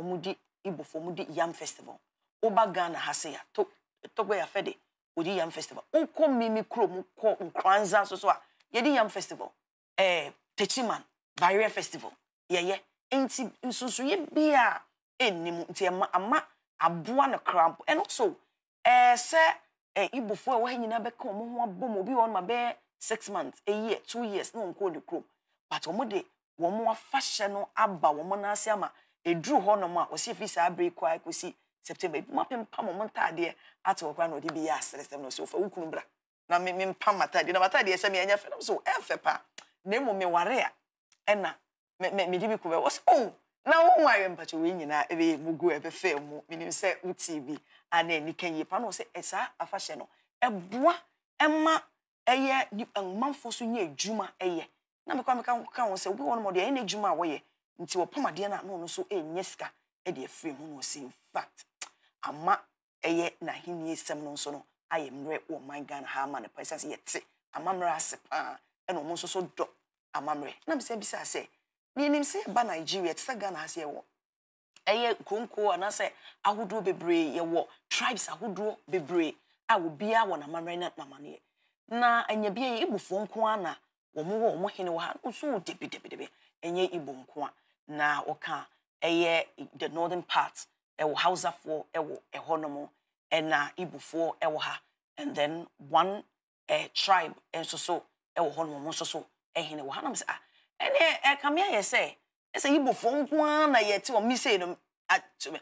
ɔmudi ibofo di yam festival woba ghana ha se to tɔgbɛ yafɛ de wɔdi yam festival wokɔ mimi kurom kɔ nkranza nso so a yɛdi yam festival ɛɛ eh, techiman barrier festival yɛyɛ nti nsonsoyɛ bia ɛnim nti ɛma ama aboa no cramp ɛno so ɛɛ eh, sɛ ɛɛ eh, ibofo a wɔhɛ nyinaa bɛka wɔn ho abom obi wɔ ma bɛyɛ six months a year two years na wɔn kɔ ne kurom but wɔn de wɔn afahyɛ no aba wɔn nan ase ama eduru hɔnom a wɔsi efi saa abiri kɔ a september ebi mo apempam wɔn ntaadeɛ ato wɔn kora na ɔde bi yɛ aseresɛm na ɔsi ofa wukunu bra na mi mi mpam ataadeɛ na ma ataadeɛ sɛ mi ɛnyɛ fɛ na mo so ɛfɛ paa na emu mi ware a ɛna mɛ mɛ mi de bi kɔ wɔsi o oh, na wɔn ayɛ mpatsa wɔn nyinaa ɛbɛ yɛ mu gu ɛbɛ fɛ mu minim sɛ wuti bi ana anika yie paa na wɔsi afahyɛ no ɛboa ɛma ɛyɛ nipa nmanfo so nyɛ adwuma ɛyɛ na mekɔ meka ka wɔn sɛ obi wɔn mo deɛ ɛyɛ n'adwuma a wɔyɛ nti wɔpam adeɛ no a na ɔno nso ɛnyɛ sika ɛde afiri mu na ɔsi in fact ama ɛyɛ n'ahenni sɛm no nso no ayɛ mmerɛ wɔ man ghana ha ama ne pa ɛsan sɛ yɛte amammerɛ ase paa ɛna ɔmo nso so dɔ amammerɛ na mesɛ bisa sɛ nenim sɛ yɛba nigeria te sɛ ghana ase yɛwɔ ɛyɛ konko anaasɛ ahodoɔ bebree yɛwɔ tribes ahodoɔ bebree a obiara wɔ n'amammerɛ ne n'amanneɛ na ɛnyɛ bi yɛ ebufoɔ nko ara wɔn wɔ ha hene wɔ ha nso wɔ debi ɛnyɛ nko a na ɔka ɛyɛ the northern part ɛwɔ hausafoɔ ɛwɔ ɛhɔnom ɛna ɛwɔ ha and then one ɛɛ eh, tribe nso so ɛwɔ hɔnom nso so ɛhene wɔ ha nam sɛ a ah, ɛnɛ ɛkame eh, ayɛ sɛ ɛsɛ nko ara na yɛte wɔn no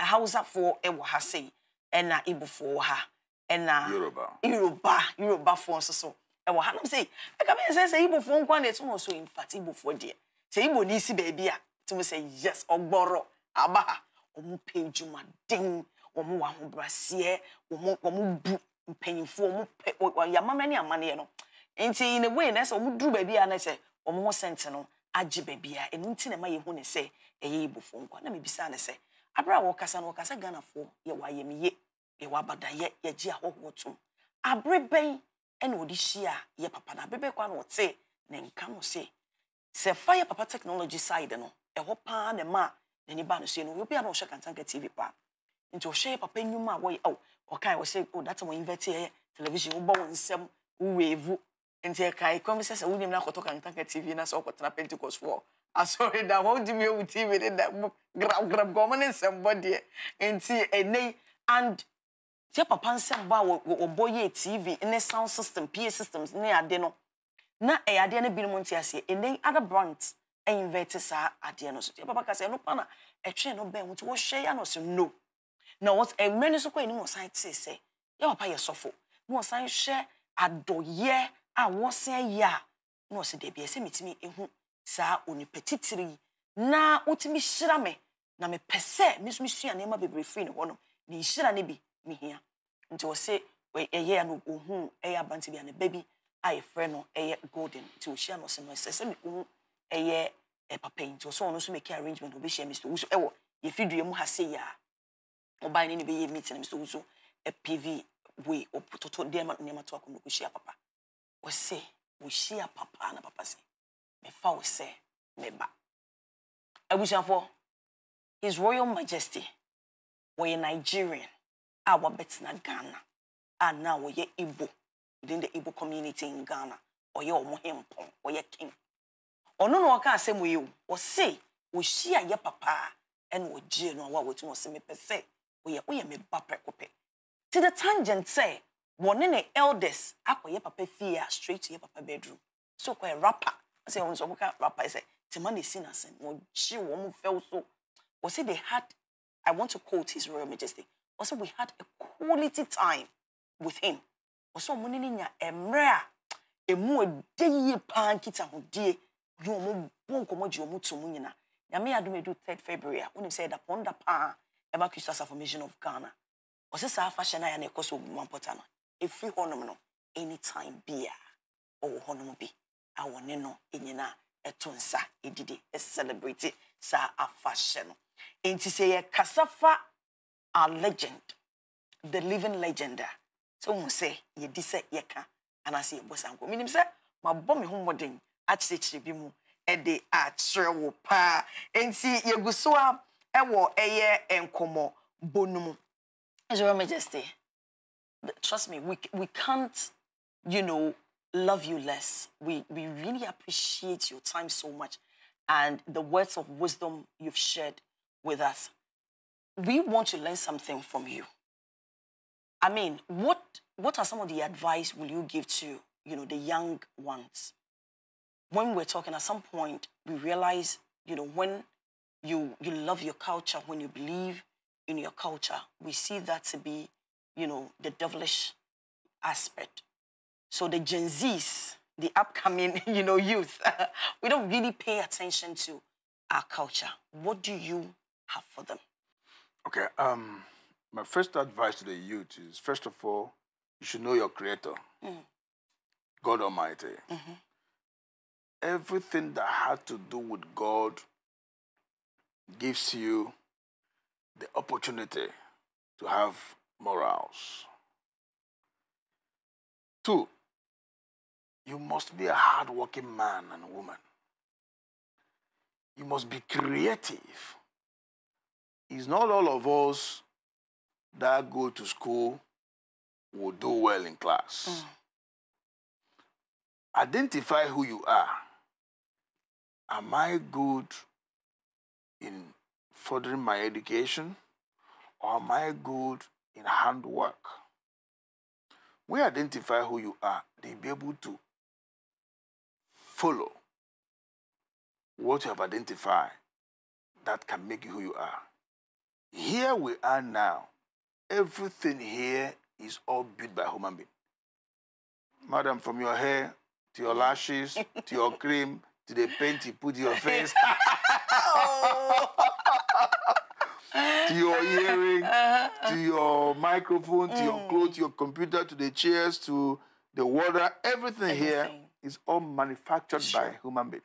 hausafoɔ ɛwɔ ha sɛyi ɛna igbofoɔ wɔ ha ɛna yoruba yoruba yorubafoɔ nso so. ɛwɔ hanom sei ɛka e bɛyɛ sɛ sɛ ibofoɔ nko nkwa na ɛtum e so infact ibofoɔ deɛ sɛ ibo ne si a tum sɛ yes ɔgbɔrɔ aba ha wɔn pɛ dwumaden wɔn wɔ ahobraseɛ wɔn wɔn bu mpanyinfoɔ wɔn pɛ yamama no nti in a way na sɛ wɔn duru baabi a na sɛ wɔn ho sɛnte no agye baabi a ɛnu ti na ma yɛ hu ne sɛ ɛyɛ na bisa a ɛna wɔde hyia yɛ papa na abɛbɛ kwa na wɔte ne nka no se sɛ fa yɛ papa technology side no ɛhɔ paa na ma n'ani ba no se no obi a na ɔhyɛ kantanka tv pa. nti ɔhyɛ papa nnwuma a wɔyɛ ɛwɔ ɔkae wɔ sɛ o oh, data wɔn invɛte yɛ television wobɔ wɔn nsɛm woweevu nti ɛkae kɔm sɛ sɛ wonim na akɔtɔ kantanka tv na sɛ ɔkɔtena pentecost foɔ asɔre da wɔn di mi ewu tv ne da grab grab gɔmɔ ne nsɛm bɔ deɛ nti ɛnɛ and tie papa nsɛm bɔ a wɔbɔ tv ne sound system pa systems ne ade no na ɛyɛ adeɛ no binom nte aseɛ ɛnɛ other brands ɛinvɛte saa adeɛ no so tie papa ka sɛ ɛno pa na ɛtwɛn no bɛn nti wɔhwɛ yɛ ano so no na wɔn eh, mmerɛ no so kɔ anim wɔsan te sɛ yɛ papa yɛ sɔfo na wɔsan hyɛ adɔyɛ a wɔsan yɛ a na wɔsɛ deebi ɛsɛ mitumi ehu saa onipa titiri yi na wotumi hyira me na mepɛ sɛ mesumi sua nneɛma bebree firi ne hɔ no ne nhyira ne bi ne hia nti wɔse ɛyɛ ya no ohun ɛyɛ abante bi a na ba bi a yɛfrɛ no ɛyɛ golden nti ohyia no si no ɛyɛ papa yi nti ɔsɛ ɔno nso mɛkɛ arrangement ɔbɛhyia mr wusu ɛwɔ mu ha a na mr wusu ɛpv wei ɔtoto nneɛma nneɛma to akɔnɔ kɔhyia papa ɔsɛ wɔhyia papa na papa sɛ his royal majesty nigerian Our a wɔbɛtena ghana a na wɔyɛ igbo within the igbo community in ghana your wɔn hempɔn your king no, no, ɔno na ɔka asɛm yi o ɔse wɔhyia yɛ papa ɛna ɔgyee no a wɔatum ɔse mepɛ sɛ woyɛ woyɛ me ba prɛko pɛ ti the tangent sɛ wɔne ne elders akɔyɛ papa fie a straight to yɛ papa bedroom so kɔyɛ rapper I sɛ wɔn nso wɔka rapper sɛ tema na esi na sɛn wɔgye wɔn fɛw so wɔsi they had i want to quote his royal majesty also we had a quality time with him also mo ne nya emre a emu ede yie paa nkita ho die yi ɔmo bɔ nkɔmɔ gye ɔmo to mu nyina nyame adum third february a wonim sɛ ɛda pɔn da paa ɛba christ as affirmation of ghana ɔsɛ saa afahyɛ no a yɛ na ɛkɔ so ogu mampɔta no ɛfiri hɔnom no anytime bia ɔwɔ hɔnom bi a wɔne no nyinaa ɛto nsa ɛdidi ɛcelebrate saa afahyɛ no nti sɛ yɛkasa fa Our legend, the living legend. Ah. So we say ye dise ye ka anase ye bosanko. Minim say ma bɔ me ho mmɔden akyerɛkyerɛ bi mu de akyerɛ wo paa nti yɛgu so a ɛwɔ ɛyɛ nkɔmmɔ bɔ no mu. Your Majesty, trust me, we we can't, you know, love you less. We we really appreciate your time so much, and the words of wisdom you've shared with us we want to learn something from you. I mean, what, what are some of the advice will you give to, you know, the young ones? When we are talking at some point, we realize you know, when you, you love your culture, when you believe in your culture, we see that to be, you know, the devilish aspect. So the Gen Zs, the upcoming, you know, youth, we don't really pay attention to our culture. What do you have for them? Okay. Um, my first advice to the youth is first of all, you should know your creator, mm. God Almighty. Mm -hmm. Everything that had to do with God gives you the opportunity to have morals. Two, you must be a hardworking man and woman. You must be creative it's not all of us that go to school will do well in class. Mm. Identify who you are. Am I good in furthering my education or am I good in handwork? We identify who you are, they'll be able to follow what you have identified that can make you who you are. Here we are now. Everything here is all built by human being. Madam, from your hair to your lashes to your cream to the paint you put your face to your earring uh -huh. to your microphone mm. to your mm. clothes, to your computer, to the chairs, to the water. Everything, Everything. here is all manufactured sure. by human being.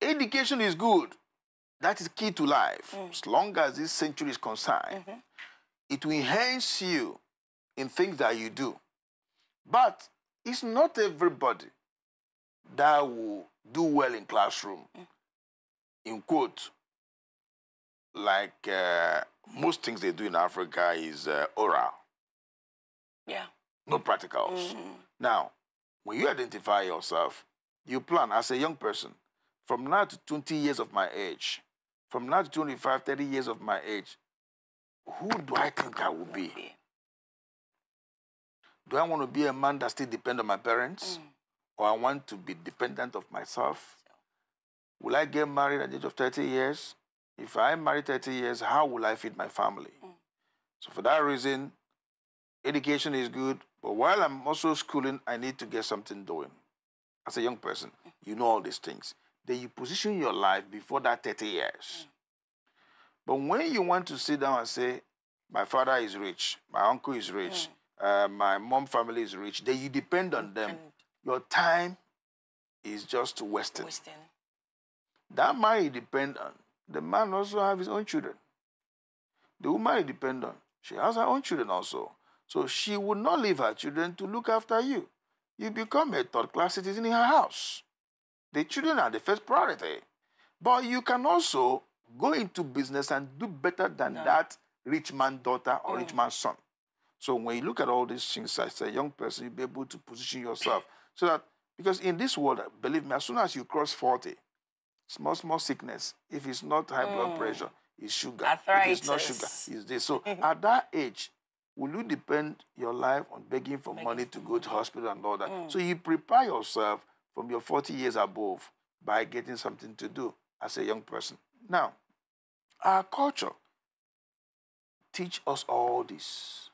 Education is good that is key to life. Mm. As long as this century is concerned, mm -hmm. it will enhance you in things that you do. But it's not everybody that will do well in classroom. Mm. In quote, like uh, most things they do in Africa is uh, oral. Yeah. No practicals. -hmm. Now, when you identify yourself, you plan as a young person, from now to 20 years of my age, from now to 25, 30 years of my age, who do I think I will be? Do I want to be a man that still depend on my parents? Mm. Or I want to be dependent of myself? Will I get married at the age of 30 years? If I marry 30 years, how will I feed my family? Mm. So for that reason, education is good, but while I'm also schooling, I need to get something doing. As a young person, you know all these things then you position your life before that 30 years. Mm. But when you want to sit down and say, my father is rich, my uncle is rich, mm. uh, my mom family is rich, then you depend on them. And your time is just wasted. That man you depend on, the man also have his own children. The woman you depend on, she has her own children also. So she would not leave her children to look after you. You become a third class citizen in her house. The children are the first priority. But you can also go into business and do better than no. that rich man's daughter or yeah. rich man's son. So when you look at all these things as a young person, you'll be able to position yourself so that because in this world, believe me, as soon as you cross 40, small, small sickness, if it's not high mm. blood pressure, it's sugar. Arthritis. If it's not sugar, it's this. So at that age, will you depend your life on begging for money to go to hospital and all that? Mm. So you prepare yourself from your 40 years above by getting something to do as a young person. Now, our culture teach us all this.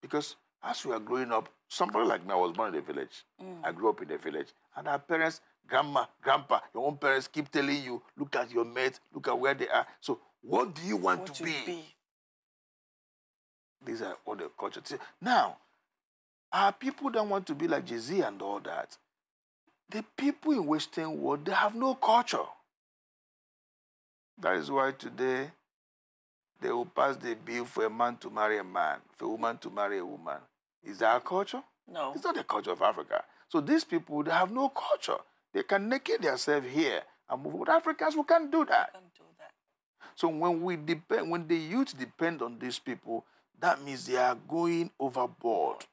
Because as we are growing up, somebody like me, I was born in a village. Mm. I grew up in a village. And our parents, grandma, grandpa, your own parents keep telling you, look at your mates, look at where they are. So what do you want what to be? be? These are all the culture. Now, our people don't want to be like Jay-Z and all that. The people in Western world, they have no culture. That is why today they will pass the bill for a man to marry a man, for a woman to marry a woman. Is that a culture? No. It's not the culture of Africa. So these people, they have no culture. They can naked themselves here and move. But Africans, we can't do that. We can't do that. So when we depend, when the youth depend on these people, that means they are going overboard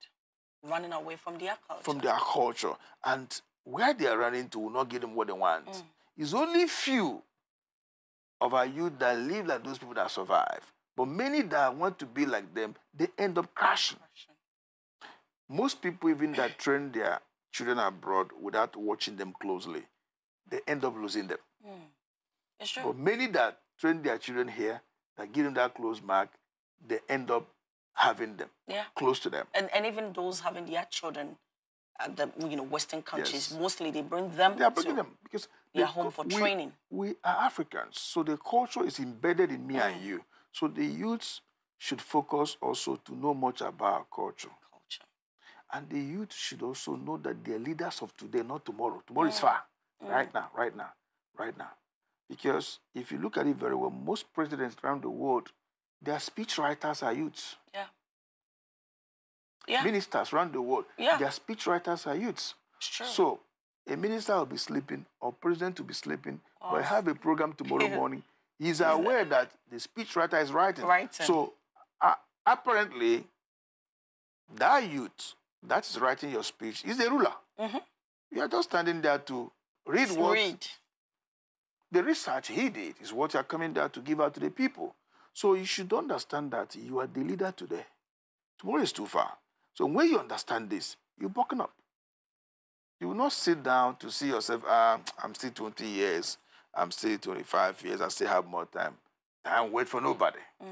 running away from their culture. From their culture. And where they are running to will not give them what they want. Mm. It's only few of our youth that live like those people that survive. But many that want to be like them, they end up crashing. crashing. Most people, even that train their children abroad without watching them closely, they end up losing them. Mm. It's true. But many that train their children here, that give them that close mark, they end up having them yeah. close to them. And, and even those having their children at the you know Western countries, yes. mostly they bring them. They are bringing them because they are home for we, training. We are Africans, so the culture is embedded in me and you. So the youths should focus also to know much about our culture. Culture. And the youth should also know that they're leaders of today, not tomorrow. Tomorrow is far. Mm. Right now, right now, right now. Because if you look at it very well, most presidents around the world their speech writers are youths. Yeah. yeah. Ministers around the world. Yeah. Their speech writers are youths. It's true. So a minister will be sleeping or president will be sleeping, oh. but I have a program tomorrow morning. He's aware that the speech writer is writing. Writing. So uh, apparently, that youth that is writing your speech is the ruler. Mm -hmm. You are just standing there to read let what read. the research he did is what you are coming there to give out to the people. So you should understand that you are the leader today. Tomorrow is too far. So when you understand this, you bucken up. You will not sit down to see yourself, ah, I'm still 20 years, I'm still 25 years, I still have more time. Time wait for nobody. Mm.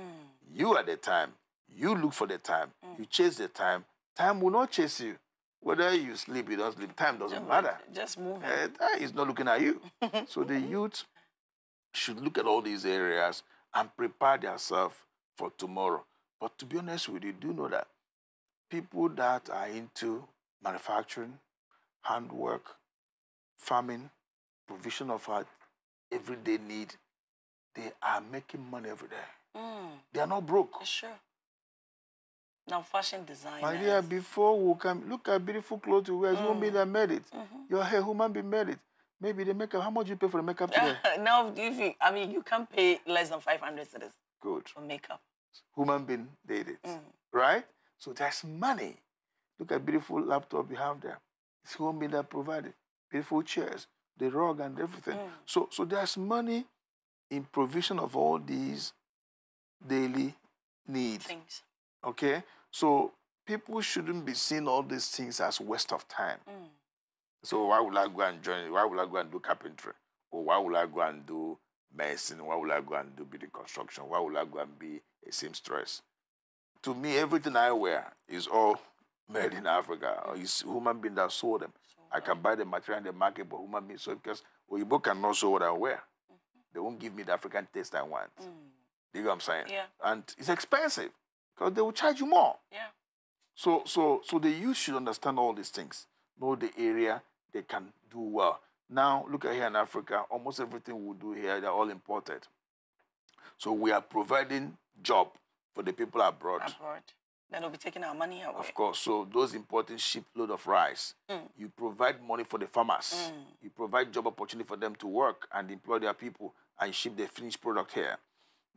You are the time. You look for the time. Mm. You chase the time. Time will not chase you. Whether you sleep, you don't sleep, time doesn't just matter. Just move. Uh, not looking at you. so the youth should look at all these areas and prepare themselves for tomorrow. But to be honest with you, do know that people that are into manufacturing, handwork, farming, provision of our everyday need, they are making money every day. Mm. They are not broke. Sure. Now fashion design. My dear, before we come, look at beautiful clothes you wear, mm. human being that made it. Mm -hmm. Your hair, human being made it. Maybe the makeup. How much you pay for the makeup today? now, if you, I mean, you can pay less than 500 cedis. Good. For makeup. Human being did it. Mm. Right? So there's money. Look at beautiful laptop you have there. It's human being that provided. Beautiful chairs, the rug and everything. Mm. So, so there's money in provision of all these daily needs. Things. Okay? So people shouldn't be seeing all these things as waste of time. Mm. So why would I go and join? Why would I go and do carpentry? Or why would I go and do medicine? Why would I go and do building construction? Why would I go and be a seamstress? To me, everything I wear is all made in Africa. Mm. It's human being that sold them. I can buy the material in the market, but human being sold because both cannot sew what I wear. Mm-hmm. They won't give me the African taste I want. Mm. You know what I'm saying? Yeah. And it's expensive because they will charge you more. Yeah. So, so, so the youth should understand all these things, know the area, they can do well. Now, look at here in Africa, almost everything we do here, they're all imported. So we are providing job for the people abroad. Abroad. Then we will be taking our money away. Of course. So those importing shipload of rice, mm. you provide money for the farmers. Mm. You provide job opportunity for them to work and employ their people and ship the finished product here.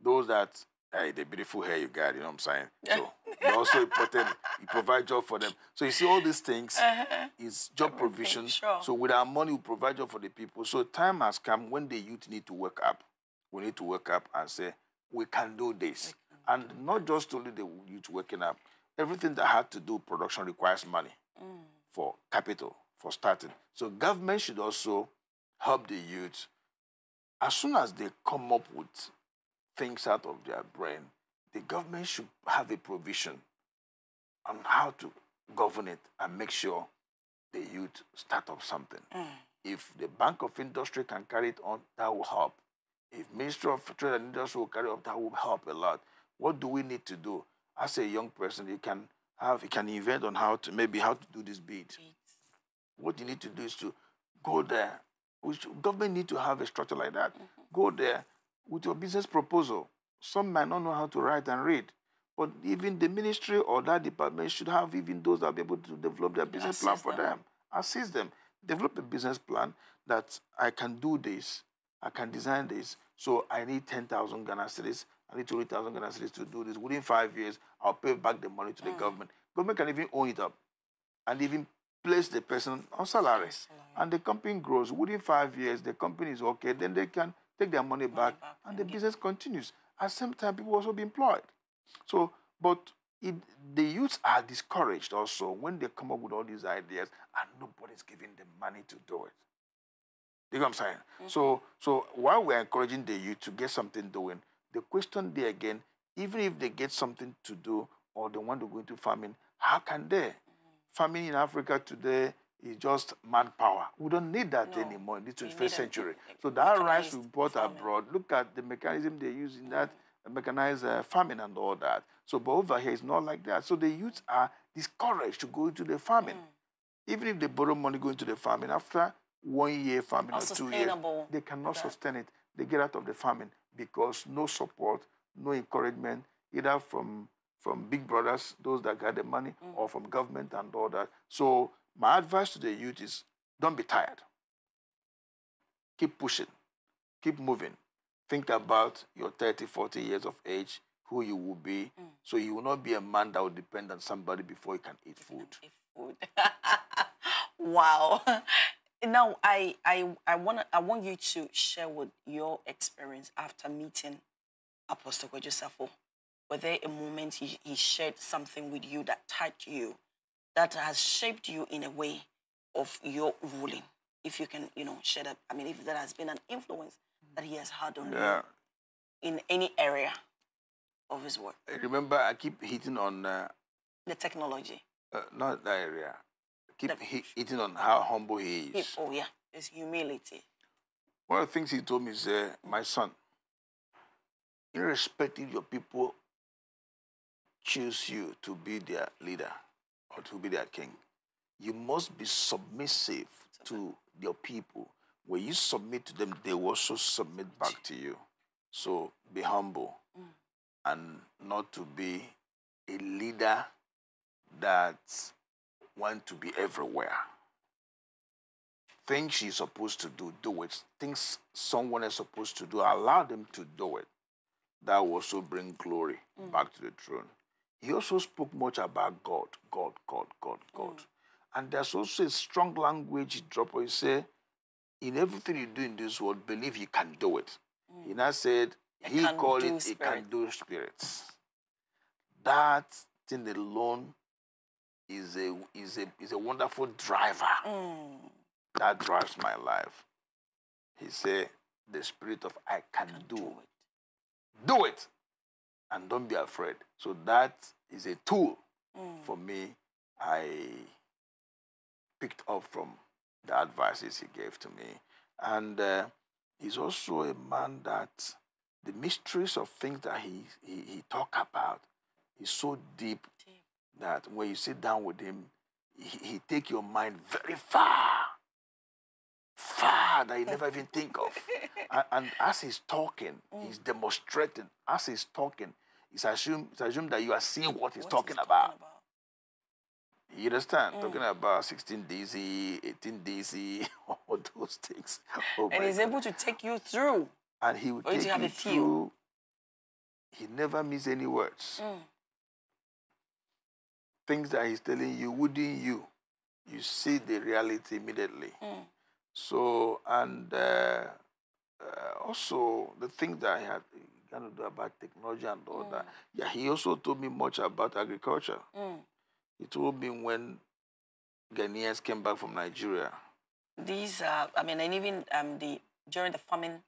Those that, hey, the beautiful hair you got, you know what I'm saying? So you also important. You provide job for them. So you see, all these things uh -huh. is job provision. Sure. So with our money, we provide job for the people. So time has come when the youth need to wake up. We need to wake up and say, we can do this. Can and do not just only the youth waking up. Everything that had to do production requires money mm. for capital, for starting. So government should also help the youth. As soon as they come up with things out of their brain, the government should have a provision on how to govern it and make sure the youth start up something. Mm. If the Bank of Industry can carry it on, that will help. If Ministry of Trade and Industry will carry it on, that will help a lot. What do we need to do? As a young person, you can have you can invent on how to maybe how to do this bid. What you need to do is to go there. Which government need to have a structure like that. Mm -hmm. Go there with your business proposal some might not know how to write and read. But even the ministry or that department should have even those that be able to develop their business plan for them. them. Assist them. Develop a business plan that I can do this, I can design this. So I need 10,000 Ghana cedis, I need 20,000 Ghana cedis to do this. Within five years, I'll pay back the money to the mm. government. Government can even own it up and even place the person on salaries, And the company grows. Within five years, the company is okay. Then they can take their money, money back, back, and the business continues. At the same time, people also be employed. So, but it, the youths are discouraged also when they come up with all these ideas and nobody's giving them money to do it. You know what I'm saying? Mm -hmm. So, so while we're encouraging the youth to get something doing, the question there again, even if they get something to do or they want to go into farming, how can they? Mm -hmm. Farming in Africa today is just manpower. We don't need that no, anymore in the 21st century. so that rice we brought farming. abroad, look at the mechanism they use in that uh, mechanized uh, farming and all that. So, but over here, it's not like that. So the youths are discouraged to go into the farming. Mm. Even if they borrow money going to the farming, after one year farming or, or two years, they cannot that. sustain it. They get out of the farming because no support, no encouragement, either from from big brothers, those that got the money, mm. or from government and all that. So my advice to the youth is don't be tired. Keep pushing, keep moving. Think about your 30, 40 years of age, who you will be, mm. so you will not be a man that will depend on somebody before you can eat food. Eat food. wow. Now, I, I, I, wanna, I want you to share with your experience after meeting Apostle Joseph. Were there a moment he, he shared something with you that touched you? that has shaped you in a way of your ruling. If you can, you know, share that. I mean, if there has been an influence that he has had on yeah. you in any area of his work. I remember, I keep hitting on uh, the technology. Uh, not that area. I keep the, hitting on how humble he is. He, oh yeah, his humility. One of the things he told me is, uh, my son, irrespective your people choose you to be their leader. God who be their king. You must be submissive to your people. When you submit to them, they will also submit back to you. So be humble mm. and not to be a leader that want to be everywhere. Things she's supposed to do, do it. Things someone is supposed to do, allow them to do it. That will also bring glory mm. back to the throne. He also spoke much about God, God, God, God, God. Mm. And there's also a strong language he dropped where he said, in everything you do in this world, believe you can do it. Mm. He now said, he called it, spirit. can do spirits. That thing alone is a, is a, is a wonderful driver mm. that drives my life. He said, the spirit of I can, I can do, do it. Do it and don't be afraid. So that is a tool mm. for me I picked up from the advices he gave to me. And uh, he's also a man that the mysteries of things that he, he, he talk about is so deep, deep, that when you sit down with him, he, he take your mind very far far that you never even think of. and, and, as he's talking, mm. he's demonstrating. As he's talking, it's assumed, it's assumed that you are seeing what he's, what talking, he's about. talking, about. You understand? Mm. Talking about 16 DC, 18 DC, all those things. Oh and he's God. able to take you through. And he will take you, you through. He never miss any words. Mm. Things that he's telling you, wouldn't you? You see the reality immediately. Mm. So, and uh, uh, also the thing that I had going to do about technology and all mm. that. Yeah, he also told me much about agriculture. Mm. He told me when Ghanaians came back from Nigeria. These are, I mean, and even um, the during the famine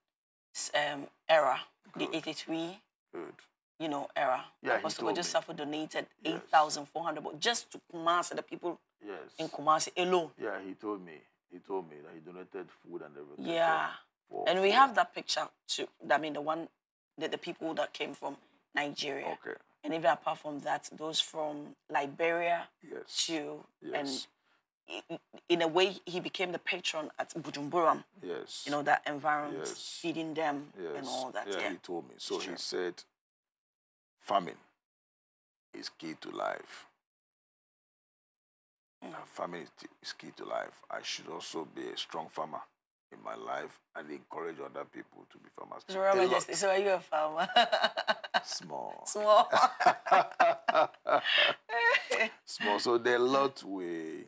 um, era, Good. the 83, Good. you know, era. Yeah, Apostle he told Safo donated yes. 8,400 just to Kumasi, the people yes. in Kumasi alone. Yeah, he told me. He told me that he donated food and everything. Yeah. For, and we have that picture too. I mean, the one, the, the people that came from Nigeria. Okay. And even apart from that, those from Liberia yes. too. Yes. And in a way, he became the patron at Bujumburam. Yes. You know, that environment, yes. feeding them yes. and all that. Yeah, yeah, he told me. So he said, famine is key to life family is key to life. I should also be a strong farmer in my life and encourage other people to be farmers. Just, so are you a farmer? Small. Small. Small. So there are a lot we,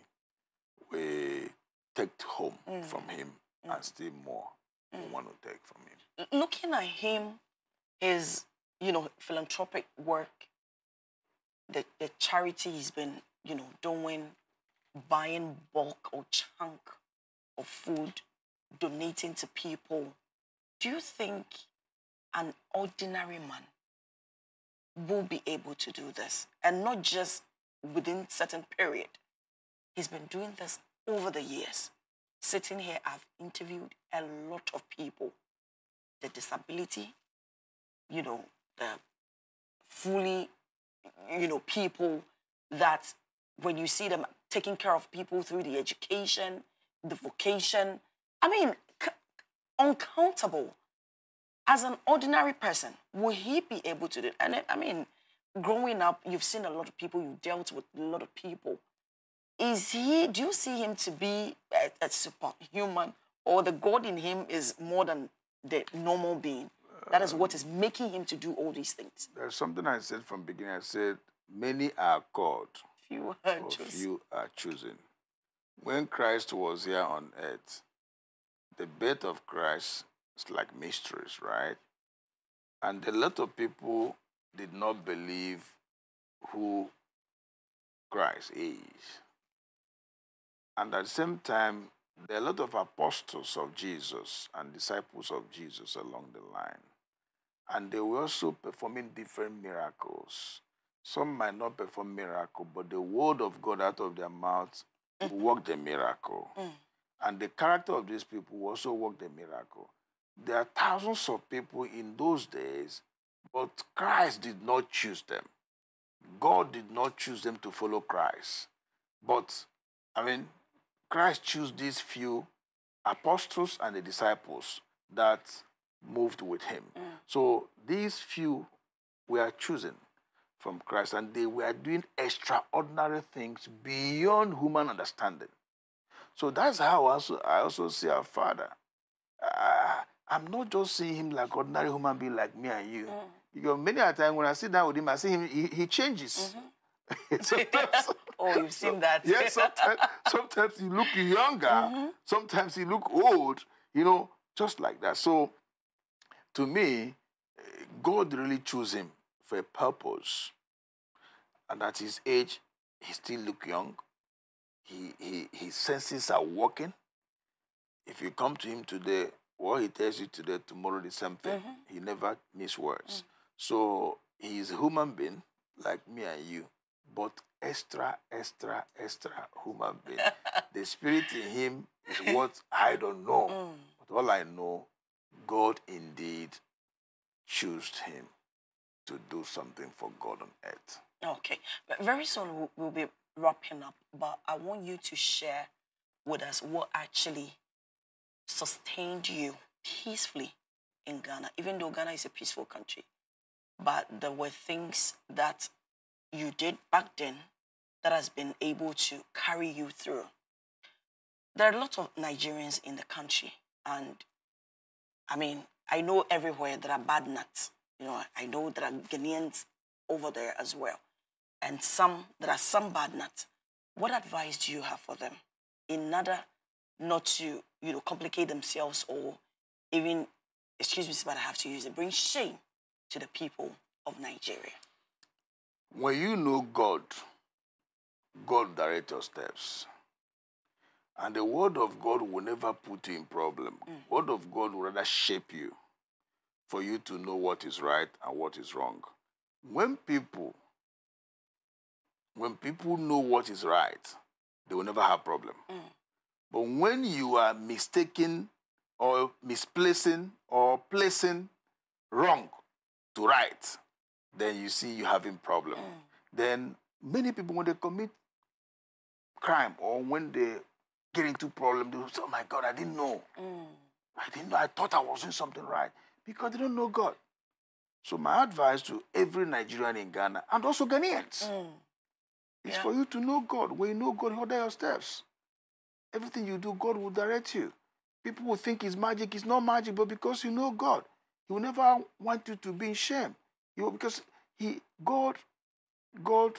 we take home mm. from him mm. and still more mm. we want to take from him. Looking at him, his, you know, philanthropic work, the, the charity he's been, you know, doing buying bulk or chunk of food, donating to people, do you think an ordinary man will be able to do this? And not just within certain period. He's been doing this over the years. Sitting here, I've interviewed a lot of people. The disability, you know, the fully, you know, people that when you see them taking care of people through the education, the vocation. I mean, uncountable. As an ordinary person, will he be able to do it? And I mean, growing up, you've seen a lot of people, you dealt with a lot of people. Is he, do you see him to be a, a superhuman or the God in him is more than the normal being? That is what is making him to do all these things. There's something I said from beginning. I said, many are called, you are for chosen. are chosen. When Christ was here on earth, the birth of Christ is like mysteries, right? And a lot of people did not believe who Christ is. And at the same time, there are a lot of apostles of Jesus and disciples of Jesus along the line. And they were also performing different miracles some might not perform miracle, but the word of God out of their mouths mm. work worked miracle. Mm. And the character of these people also worked the miracle. There are thousands of people in those days, but Christ did not choose them. God did not choose them to follow Christ. But, I mean, Christ chose these few apostles and the disciples that moved with him. Mm. So these few were chosen from Christ, and they were doing extraordinary things beyond human understanding. So that's how also, I also see our Father. Uh, I'm not just seeing him like ordinary human being like me and you. Mm. Because many a time when I sit down with him, I see him, he, he changes. Mm -hmm. oh, you've seen so, that. yes, sometimes, sometimes he look younger, mm -hmm. sometimes he look old, you know, just like that. So to me, eh, God really chose him a purpose. And at his age, he still look young. He, he, his senses are working. If you come to him today, what he tells you today, tomorrow is something. Mm -hmm. He never miss words. Mm. So he is a human being like me and you, but extra, extra, extra human being. the spirit in him is what I don't know. Mm. But all I know, God indeed chose him to do something for God on earth. Okay. But very soon we'll, we'll be wrapping up, but I want you to share with us what actually sustained you peacefully in Ghana, even though Ghana is a peaceful country. But there were things that you did back then that has been able to carry you through. There are a lot of Nigerians in the country, and I mean, I know everywhere there are bad nuts. You know, I know there are Ghanaians over there as well. And some, there are some bad nuts. What advice do you have for them in order not to, you know, complicate themselves or even, excuse me, but I have to use it, bring shame to the people of Nigeria? When you know God, God directs your steps. And the word of God will never put you in problem. Mm. Word of God will rather shape you for you to know what is right and what is wrong. When people when people know what is right, they will never have problem. Mm. But when you are mistaken or misplacing or placing wrong to right, then you see you having problem. Mm. Then many people when they commit crime or when they get into problem, they say, "Oh my God, I didn't know. Mm. I didn't know. I thought I was doing something right." because they don't know God. So my advice to every Nigerian in Ghana and also Ghanaians mm. is yeah. for you to know God. When you know God, order your steps. Everything you do, God will direct you. People will think it's magic. It's not magic, but because you know God, He will never want you to be in shame. You because He God, God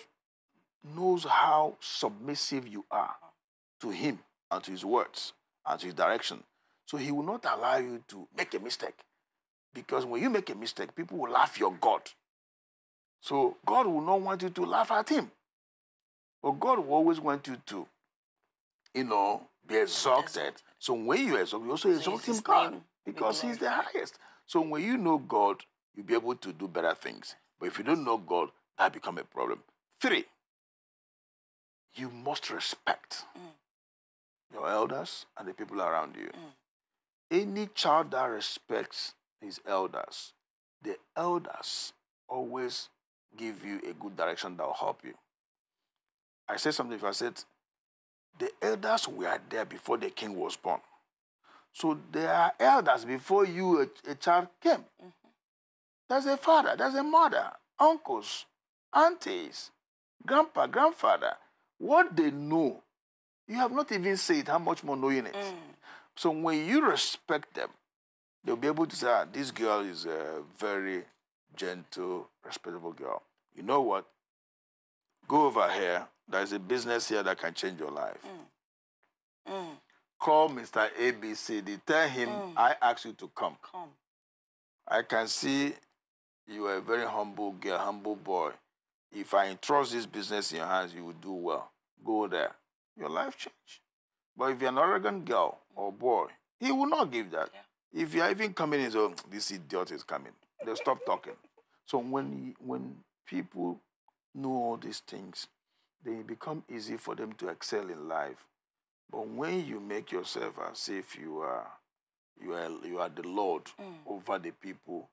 knows how submissive you are to Him and to His words and to His direction. So He will not allow you to make a mistake. Because when you make a mistake, people will laugh your God. So God will not want you to laugh at him. But God will always want you to, you know, be exalted. So when you exalt, you also so exalt him God because he's the highest. So when you know God, you'll be able to do better things. But if you don't know God, that become a problem. Three, you must respect mm. your elders and the people around you. Mm. Any child that respects his elders. The elders always give you a good direction that will help you. I said something, if I said, the elders were there before the king was born. So there are elders before you, a, a child came. Mm -hmm. There's a father, there's a mother, uncles, aunties, grandpa, grandfather. What they know, you have not even said how much more knowing it. Mm. So when you respect them, They'll be able to say, ah, this girl is a very gentle, respectable girl. You know what? Go over here. There's a business here that can change your life. Mm. Mm. Call Mr. ABCD. Tell him mm. I asked you to come. Come. I can see you are a very humble girl, humble boy. If I entrust this business in your hands, you will do well. Go there. Your life change. But if you're an arrogant girl or boy, he will not give that. Yeah. If you're even coming in, so oh, this idiot is coming. they stop talking. So when when people know all these things, they become easy for them to excel in life. But when you make yourself as if you are you are you are the Lord mm. over the people,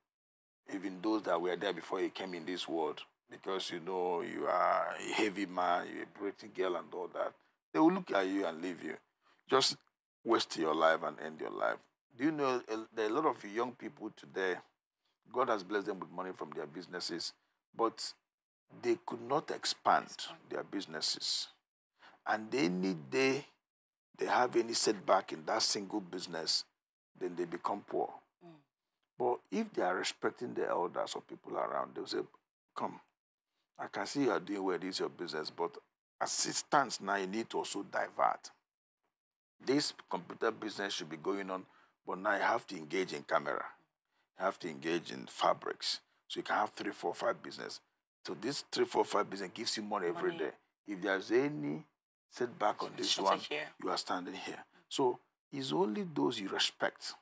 even those that were there before you came in this world, because you know you are a heavy man, you're a pretty girl and all that, they will look at you and leave you. Just waste your life and end your life. Do you know there are a lot of young people today, God has blessed them with money from their businesses, but they could not expand their businesses. And any day they have any setback in that single business, then they become poor. Mm. But if they are respecting the elders or people around, they'll say, Come, I can see you are doing well, this is your business, but assistance now you need to also divert. This computer business should be going on but now you have to engage in camera. You have to engage in fabrics. So you can have three, four, five business. So this three, four, five business gives you money, money. every day. If there's any setback on this one, here. you are standing here. So it's only those you respect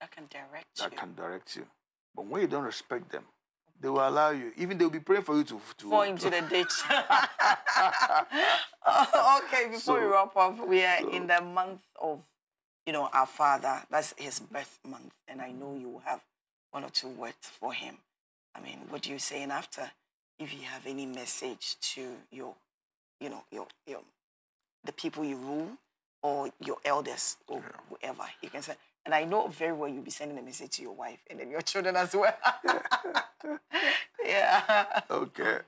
that can direct that you. can direct you. But when you don't respect them, they will allow you. Even they will be praying for you to, to fall into to... the ditch. okay, before so, we wrap up, we are so, in the month of you know, our father, that's his birth month, and I know you will have one or two words for him. I mean, what do you say? And after, if you have any message to your, you know, your, your the people you rule or your elders or yeah. whoever, you can say. And I know very well you'll be sending a message to your wife and then your children as well. yeah. Okay.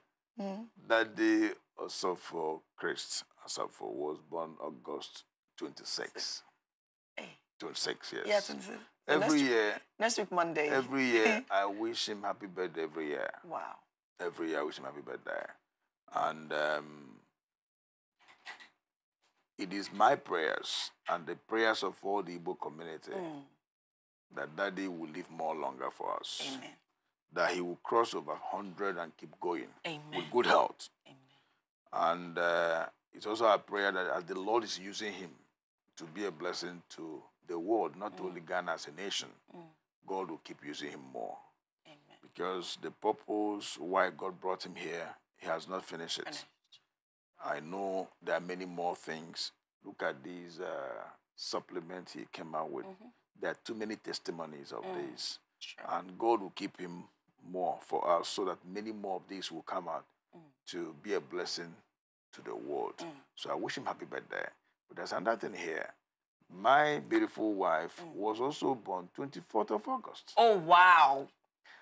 Mm. That day also for Christ, also for was born August 26 to six years. Yeah, 26. Every next year. next week, Monday. Every year, I wish him happy birthday every year. Wow. Every year, I wish him happy birthday. And um, it is my prayers and the prayers of all the Igbo community mm. that Daddy will live more longer for us. Amen. That he will cross over 100 and keep going Amen. with good health. Amen. And uh, it's also a prayer that as the Lord is using him to be a blessing to the world, not mm. only Ghana as a nation, mm. God will keep using him more. Amen. Because the purpose why God brought him here, he has not finished it. I know there are many more things. Look at these uh, supplements he came out with. Mm -hmm. There are too many testimonies of mm. this. Sure. And God will keep him more for us so that many more of these will come out mm. to be a blessing to the world. Mm. So I wish him happy birthday. But there's another thing here my beautiful wife mm. was also born 24th of August. Oh, wow.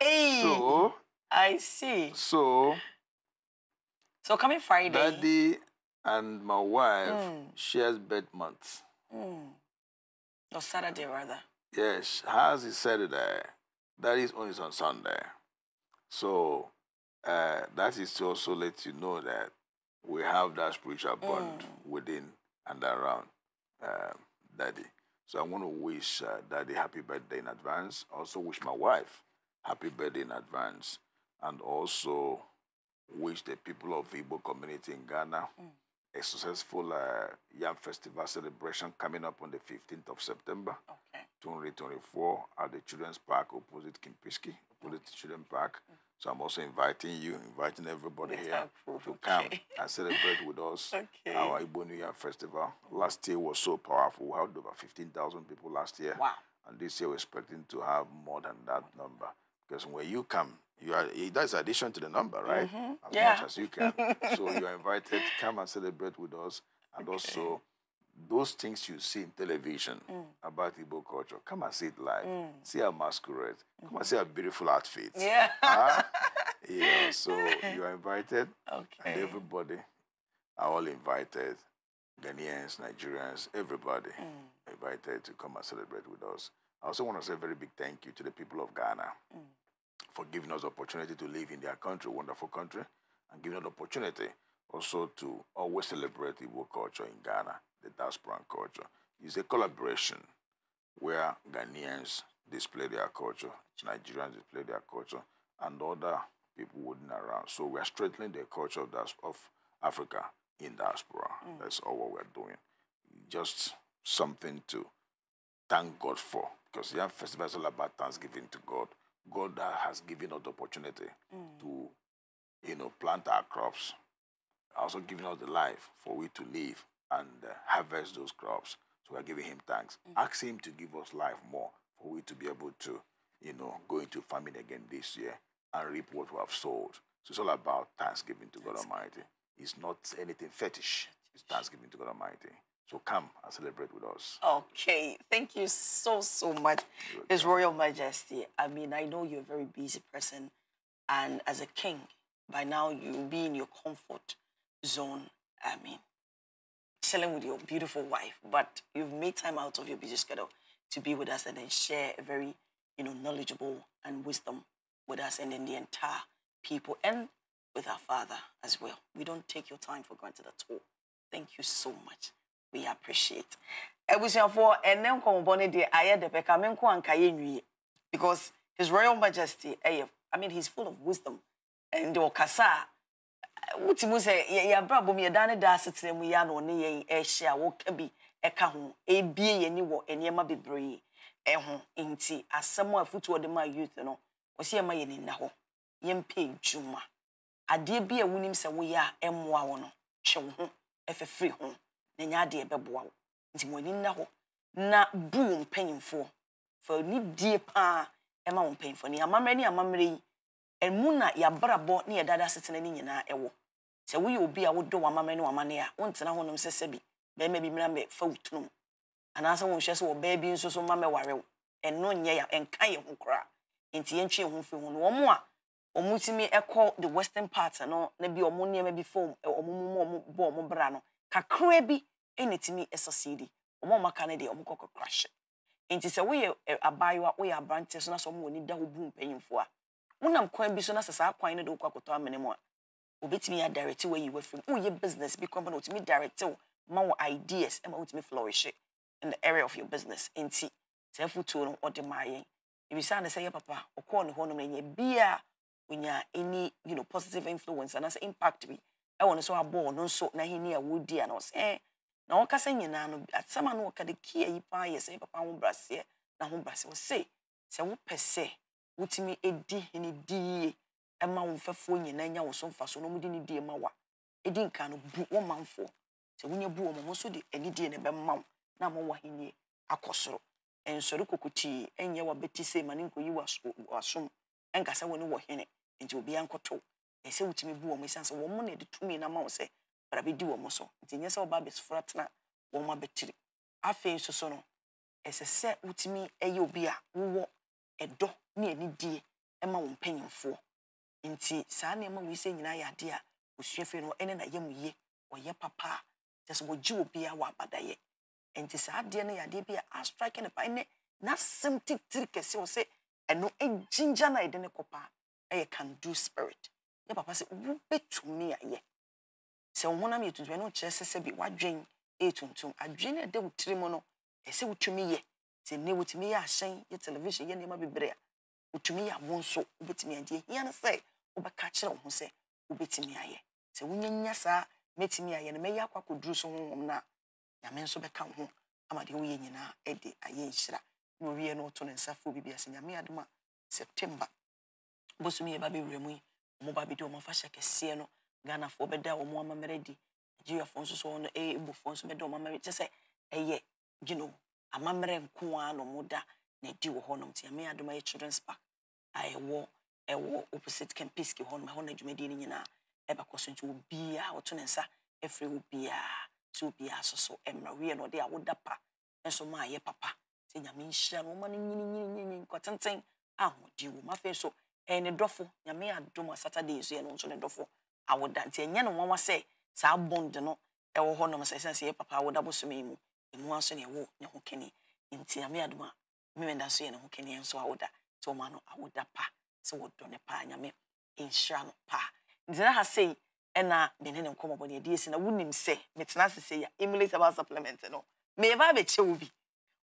Hey, so, I see. So, so coming Friday. Daddy and my wife mm. shares bed months. Mm. Or Saturday, rather. Yes, hers is Saturday. That is only on Sunday. So, uh, that is to also let you know that we have that spiritual bond mm. within and around. Um, Daddy. So I want to wish uh, Daddy happy birthday in advance. Also wish my wife happy birthday in advance. And also wish the people of Igbo community in Ghana mm. a successful uh, Yam Festival celebration coming up on the 15th of September, okay. 2024 at the Children's Park opposite Kimpiski, opposite okay. Children's Park. Mm -hmm. So I'm also inviting you, inviting everybody here to come and celebrate with us okay. our Igbo New Year Festival. Last year was so powerful. We had over 15,000 people last year. Wow. And this year we're expecting to have more than that number. Because when you come, you are that's addition to the number, right? Mm -hmm. As yeah. much as you can. so you're invited, come and celebrate with us. And okay. also those things you see in television mm. about Igbo culture, come and see it live. Mm. See our masquerade. Come mm -hmm. and see our beautiful outfits. Yeah. Huh? yeah. So you are invited. Okay. And everybody are all invited. Ghanaians, Nigerians, everybody mm. invited to come and celebrate with us. I also want to say a very big thank you to the people of Ghana mm. for giving us the opportunity to live in their country, wonderful country, and giving us the opportunity also to always celebrate Igbo culture in Ghana the diaspora and culture. is a collaboration where Ghanaians display their culture, Nigerians display their culture, and other people wooden around. So we are strengthening the culture of, of Africa in diaspora. Mm. That's all what we're doing. Just something to thank God for. Because the festival is all about thanksgiving to God. God has given us the opportunity mm. to, you know, plant our crops, also giving us the life for we to live and uh, harvest those crops. So we're giving him thanks. Mm -hmm. Ask him to give us life more for we to be able to, you know, go into farming again this year and reap what we have sowed. So it's all about thanksgiving to That's God Almighty. It's not anything fetish. It's thanksgiving to God Almighty. So come and celebrate with us. Okay. Thank you so, so much. His Royal Majesty, I mean, I know you're a very busy person. And as a king, by now you'll be in your comfort zone. I mean, excelling with your beautiful wife, but you've made time out of your busy schedule to be with us and then share a very, you know, knowledgeable and wisdom with us and then the entire people and with our Father as well. We don't take your time for granted at all. Thank you so much. We appreciate. and then come the because His Royal Majesty, eh, I mean, he's full of wisdom. And the Okasa, wotumi sɛ yɛabrabɔ mu yɛda ne da asetena mu yi na ɔne yɛn ɛhyɛ a wɔka bi ɛka ho ebie yɛn ni wɔ nneɛma bebree ɛho nti asɛm a futu de ma youth no wɔsi yɛn ma yɛn nina hɔ yɛn mpɛ adwuma adeɛ bi a wonim sɛ woyɛ a ɛmmoa wɔ no twɛ wo ho ɛfɛfiri ho na nyɛ adeɛ ɛbɛboa wo nti mo ani nna hɔ na bu wo mpanyinfoɔ fa nidie paa ɛma wo mpanyinfoɔ ne amammerɛ ne amammerɛ yi ɛmu na yɛabrabɔ ne yɛdada setena no nyinaa ɛwɔ sɛ woyɛ obi a wodɔ wamama ne wamane a wontena honom sɛ sɛbi bɛrima bi mmra mɛfa wo tunom anaasɛ wonhwɛ sɛ wɔbaa bi nso so ma mɛware wo ɛno nyɛ ya ɛnka yɛ ho koraa nti yɛntwe ho fi ho no wɔn a wɔn tumi ɛkɔ the western part no na bi wɔn nneɛma bi fam wɔn mu wɔn bɔ wɔn bra no kakraa bi ɛna tumi ɛsɔsiidi wɔn a wɔn aka no deɛ wɔn kɔkɔ crash nti sɛ woyɛ abaayewa woyɛ aberanteɛ so na sɛ wɔn wɔ ni da ho bu mpanyinfoɔ a wonam kwan bi so na sɛ saa kwan no de wokɔ akɔtɔ amene mu a wobɛtumi yɛ adirect wɔ yiwɔ mu woyɛ business bi kɔmpa na wotumi direct wo ma wɔ ideas ma wotumi flourish in the area of your business nti saa fotuo no ɔde maa yɛn ebisa ne sɛ yɛ papa ɔkɔɔ ne hɔnom na nyɛ bia onya any you know positive influence anaasɛ impact bi ɛwɔ ne so abɔ ɔno nso n'ahenni a wodi a na ɔsɛ ɛɛ na wɔkasa nyinaa no asɛm a no wɔka de kia yi paa yɛ sɛ papa ho braseɛ na ho braseɛ ɔsɛ sɛ wopɛ sɛ wotumi edi hene di yie ɛma wo mfɛfoɔ nyinaa nya wo so mfa so na ndị de ne die ma wa edi nka no bu wɔn manfoɔ sɛ wonya bu wɔn nso de na ɛbɛma wo na ama wo ahenie akɔ soro nsɔre kokotii wa bɛti ma ne nkɔyi wasom ɛnkasa wɔ ne wɔ hene nti obiara nkɔtɔ ɛsɛ wotumi bu wɔn sɛ wɔn na ɛde tumi na ama wo sɛ bara bɛdi wɔn so nti nyɛ sɛ ɔba wɔn abɛtiri afei nso so no ɛsɛ sɛ wotumi ɛyɛ obi a wowɔ ɛdɔ ne anidie ma wɔn mpanyinfoɔ nti saa nneɛma wei sɛ nyinaa yɛ adeɛ a osua fɛ no ɛne na yɛ mu yie ɔyɛ papa a kyɛ sɛ wɔgye wɔ biara wɔ abadayɛ nti saa adeɛ no yɛ adeɛ bi a astrike ne pa ne n'asɛm titiri kɛse wɔ sɛ ɛno gyingya no a yɛde ne kɔ paa ɛyɛ can do spirit yɛ papa sɛ wobɛtumi ayɛ sɛ wo honam yɛ tuntum ɛno kyerɛ sɛ sɛ bi wadwen ɛyɛ tuntum adwene no ɛda wo tiri mu no ɛsɛ wotumi yɛ nti ne wotumi yɛ ahyɛn yɛ television yɛ nneɛma bebree a wotumi yɛ awo nso wobɛtumi adi ehia no sɛ wobɛka kyerɛ wo ho sɛ wobɛtumi ayɛ sɛ wonyanya saa mɛtumi ayɛ no mɛyɛ akɔ akɔduru so honhom no a nyame nso bɛka wo ho ama deɛ woyɛ nyinaa ɛde ayɛ nhyira na owie no woto ne nsa fo biribi ase nyame adom a september bosomi yɛ ba bɛwura mu yi ɔmo ba bɛdi ɔmo afahyɛ kɛseɛ no ghanafoɔ bɛda ɔmo amammerɛ di nigeriafoɔ nso so ɔno ɛɛbofoɔ eh, nso bɛda ɔmo amammerɛ kyɛ sɛ ɛyɛ gyina you amammerɛ nko ara na ɔmo da na ɛdi wɔ hɔnom nti ame adom children's park a ɛwɔ ɛwɔ opposite kempiski hɔnom ɛhɔ na dwumadie no nyinaa ɛbɛkɔ so nti obiara ɔto ne nsa ɛfiri obiara nti obiara so so ɛmmerɛ wiɛ na ɔde awoda pa nso ma ayɛ papa nti nyame nhyira no ɔma no nyininyininyini nkɔtenten a ahoɔden wɔ mu afei so ɛyɛ ne dɔfo nyame adom a saturday nso yɛ no nso ne dɔfo awoda nti ɛnyɛ ne nwanwa sɛ saa bond no ɛwɔ hɔnom sɛ ɛsiane sɛ yɛ papa awoda bosome yi mu ɛno nso ne ɛwɔ ne ho kɛne nti nyame adom a mmemme da so yɛ ne ho kɛne nso awoda sɛ ɔma no awoda pa sɛ wɔdɔ ne paa nyame nhyira no pa gyina ha sei ɛna mene ne nkɔmmɔbɔ ne ɛdeɛ si na wonim sɛ metena ase sɛ yɛ emulate about supplement no meyɛba abɛkyɛ wo bi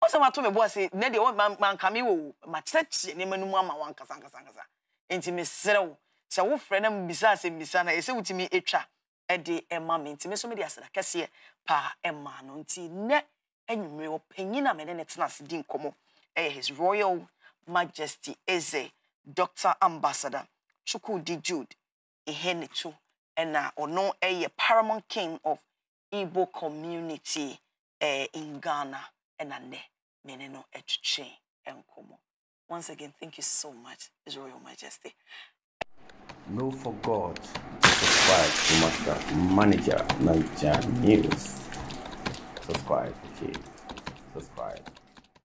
ɔsɛ mato me boa se nɛ deɛ manka me wɔ makyerɛkyerɛ nneɛma no mu ama wo ankasankasankasa nti meserɛ wo sɛ wofrɛ na mbisa asɛ mbisa na ɛsɛ wotumi ɛtwa ɛde ɛma me nti me so mede aseda kɛseɛ paa ɛma no nti nɛ Any ɔpanyin opinion? I mean, tena ase di nkɔmmɔ his royal majesty eze doctor ambassador chukwudi jude ihenetu ɛna ɔno uh, eh, a paramount king of igbo community eh, in ghana and uh, nnɛ Meneno no eh, And nkɔmmɔ once again thank you so much his royal majesty No for God, subscribe to Manager Niger News subscribe, okay? Subscribe.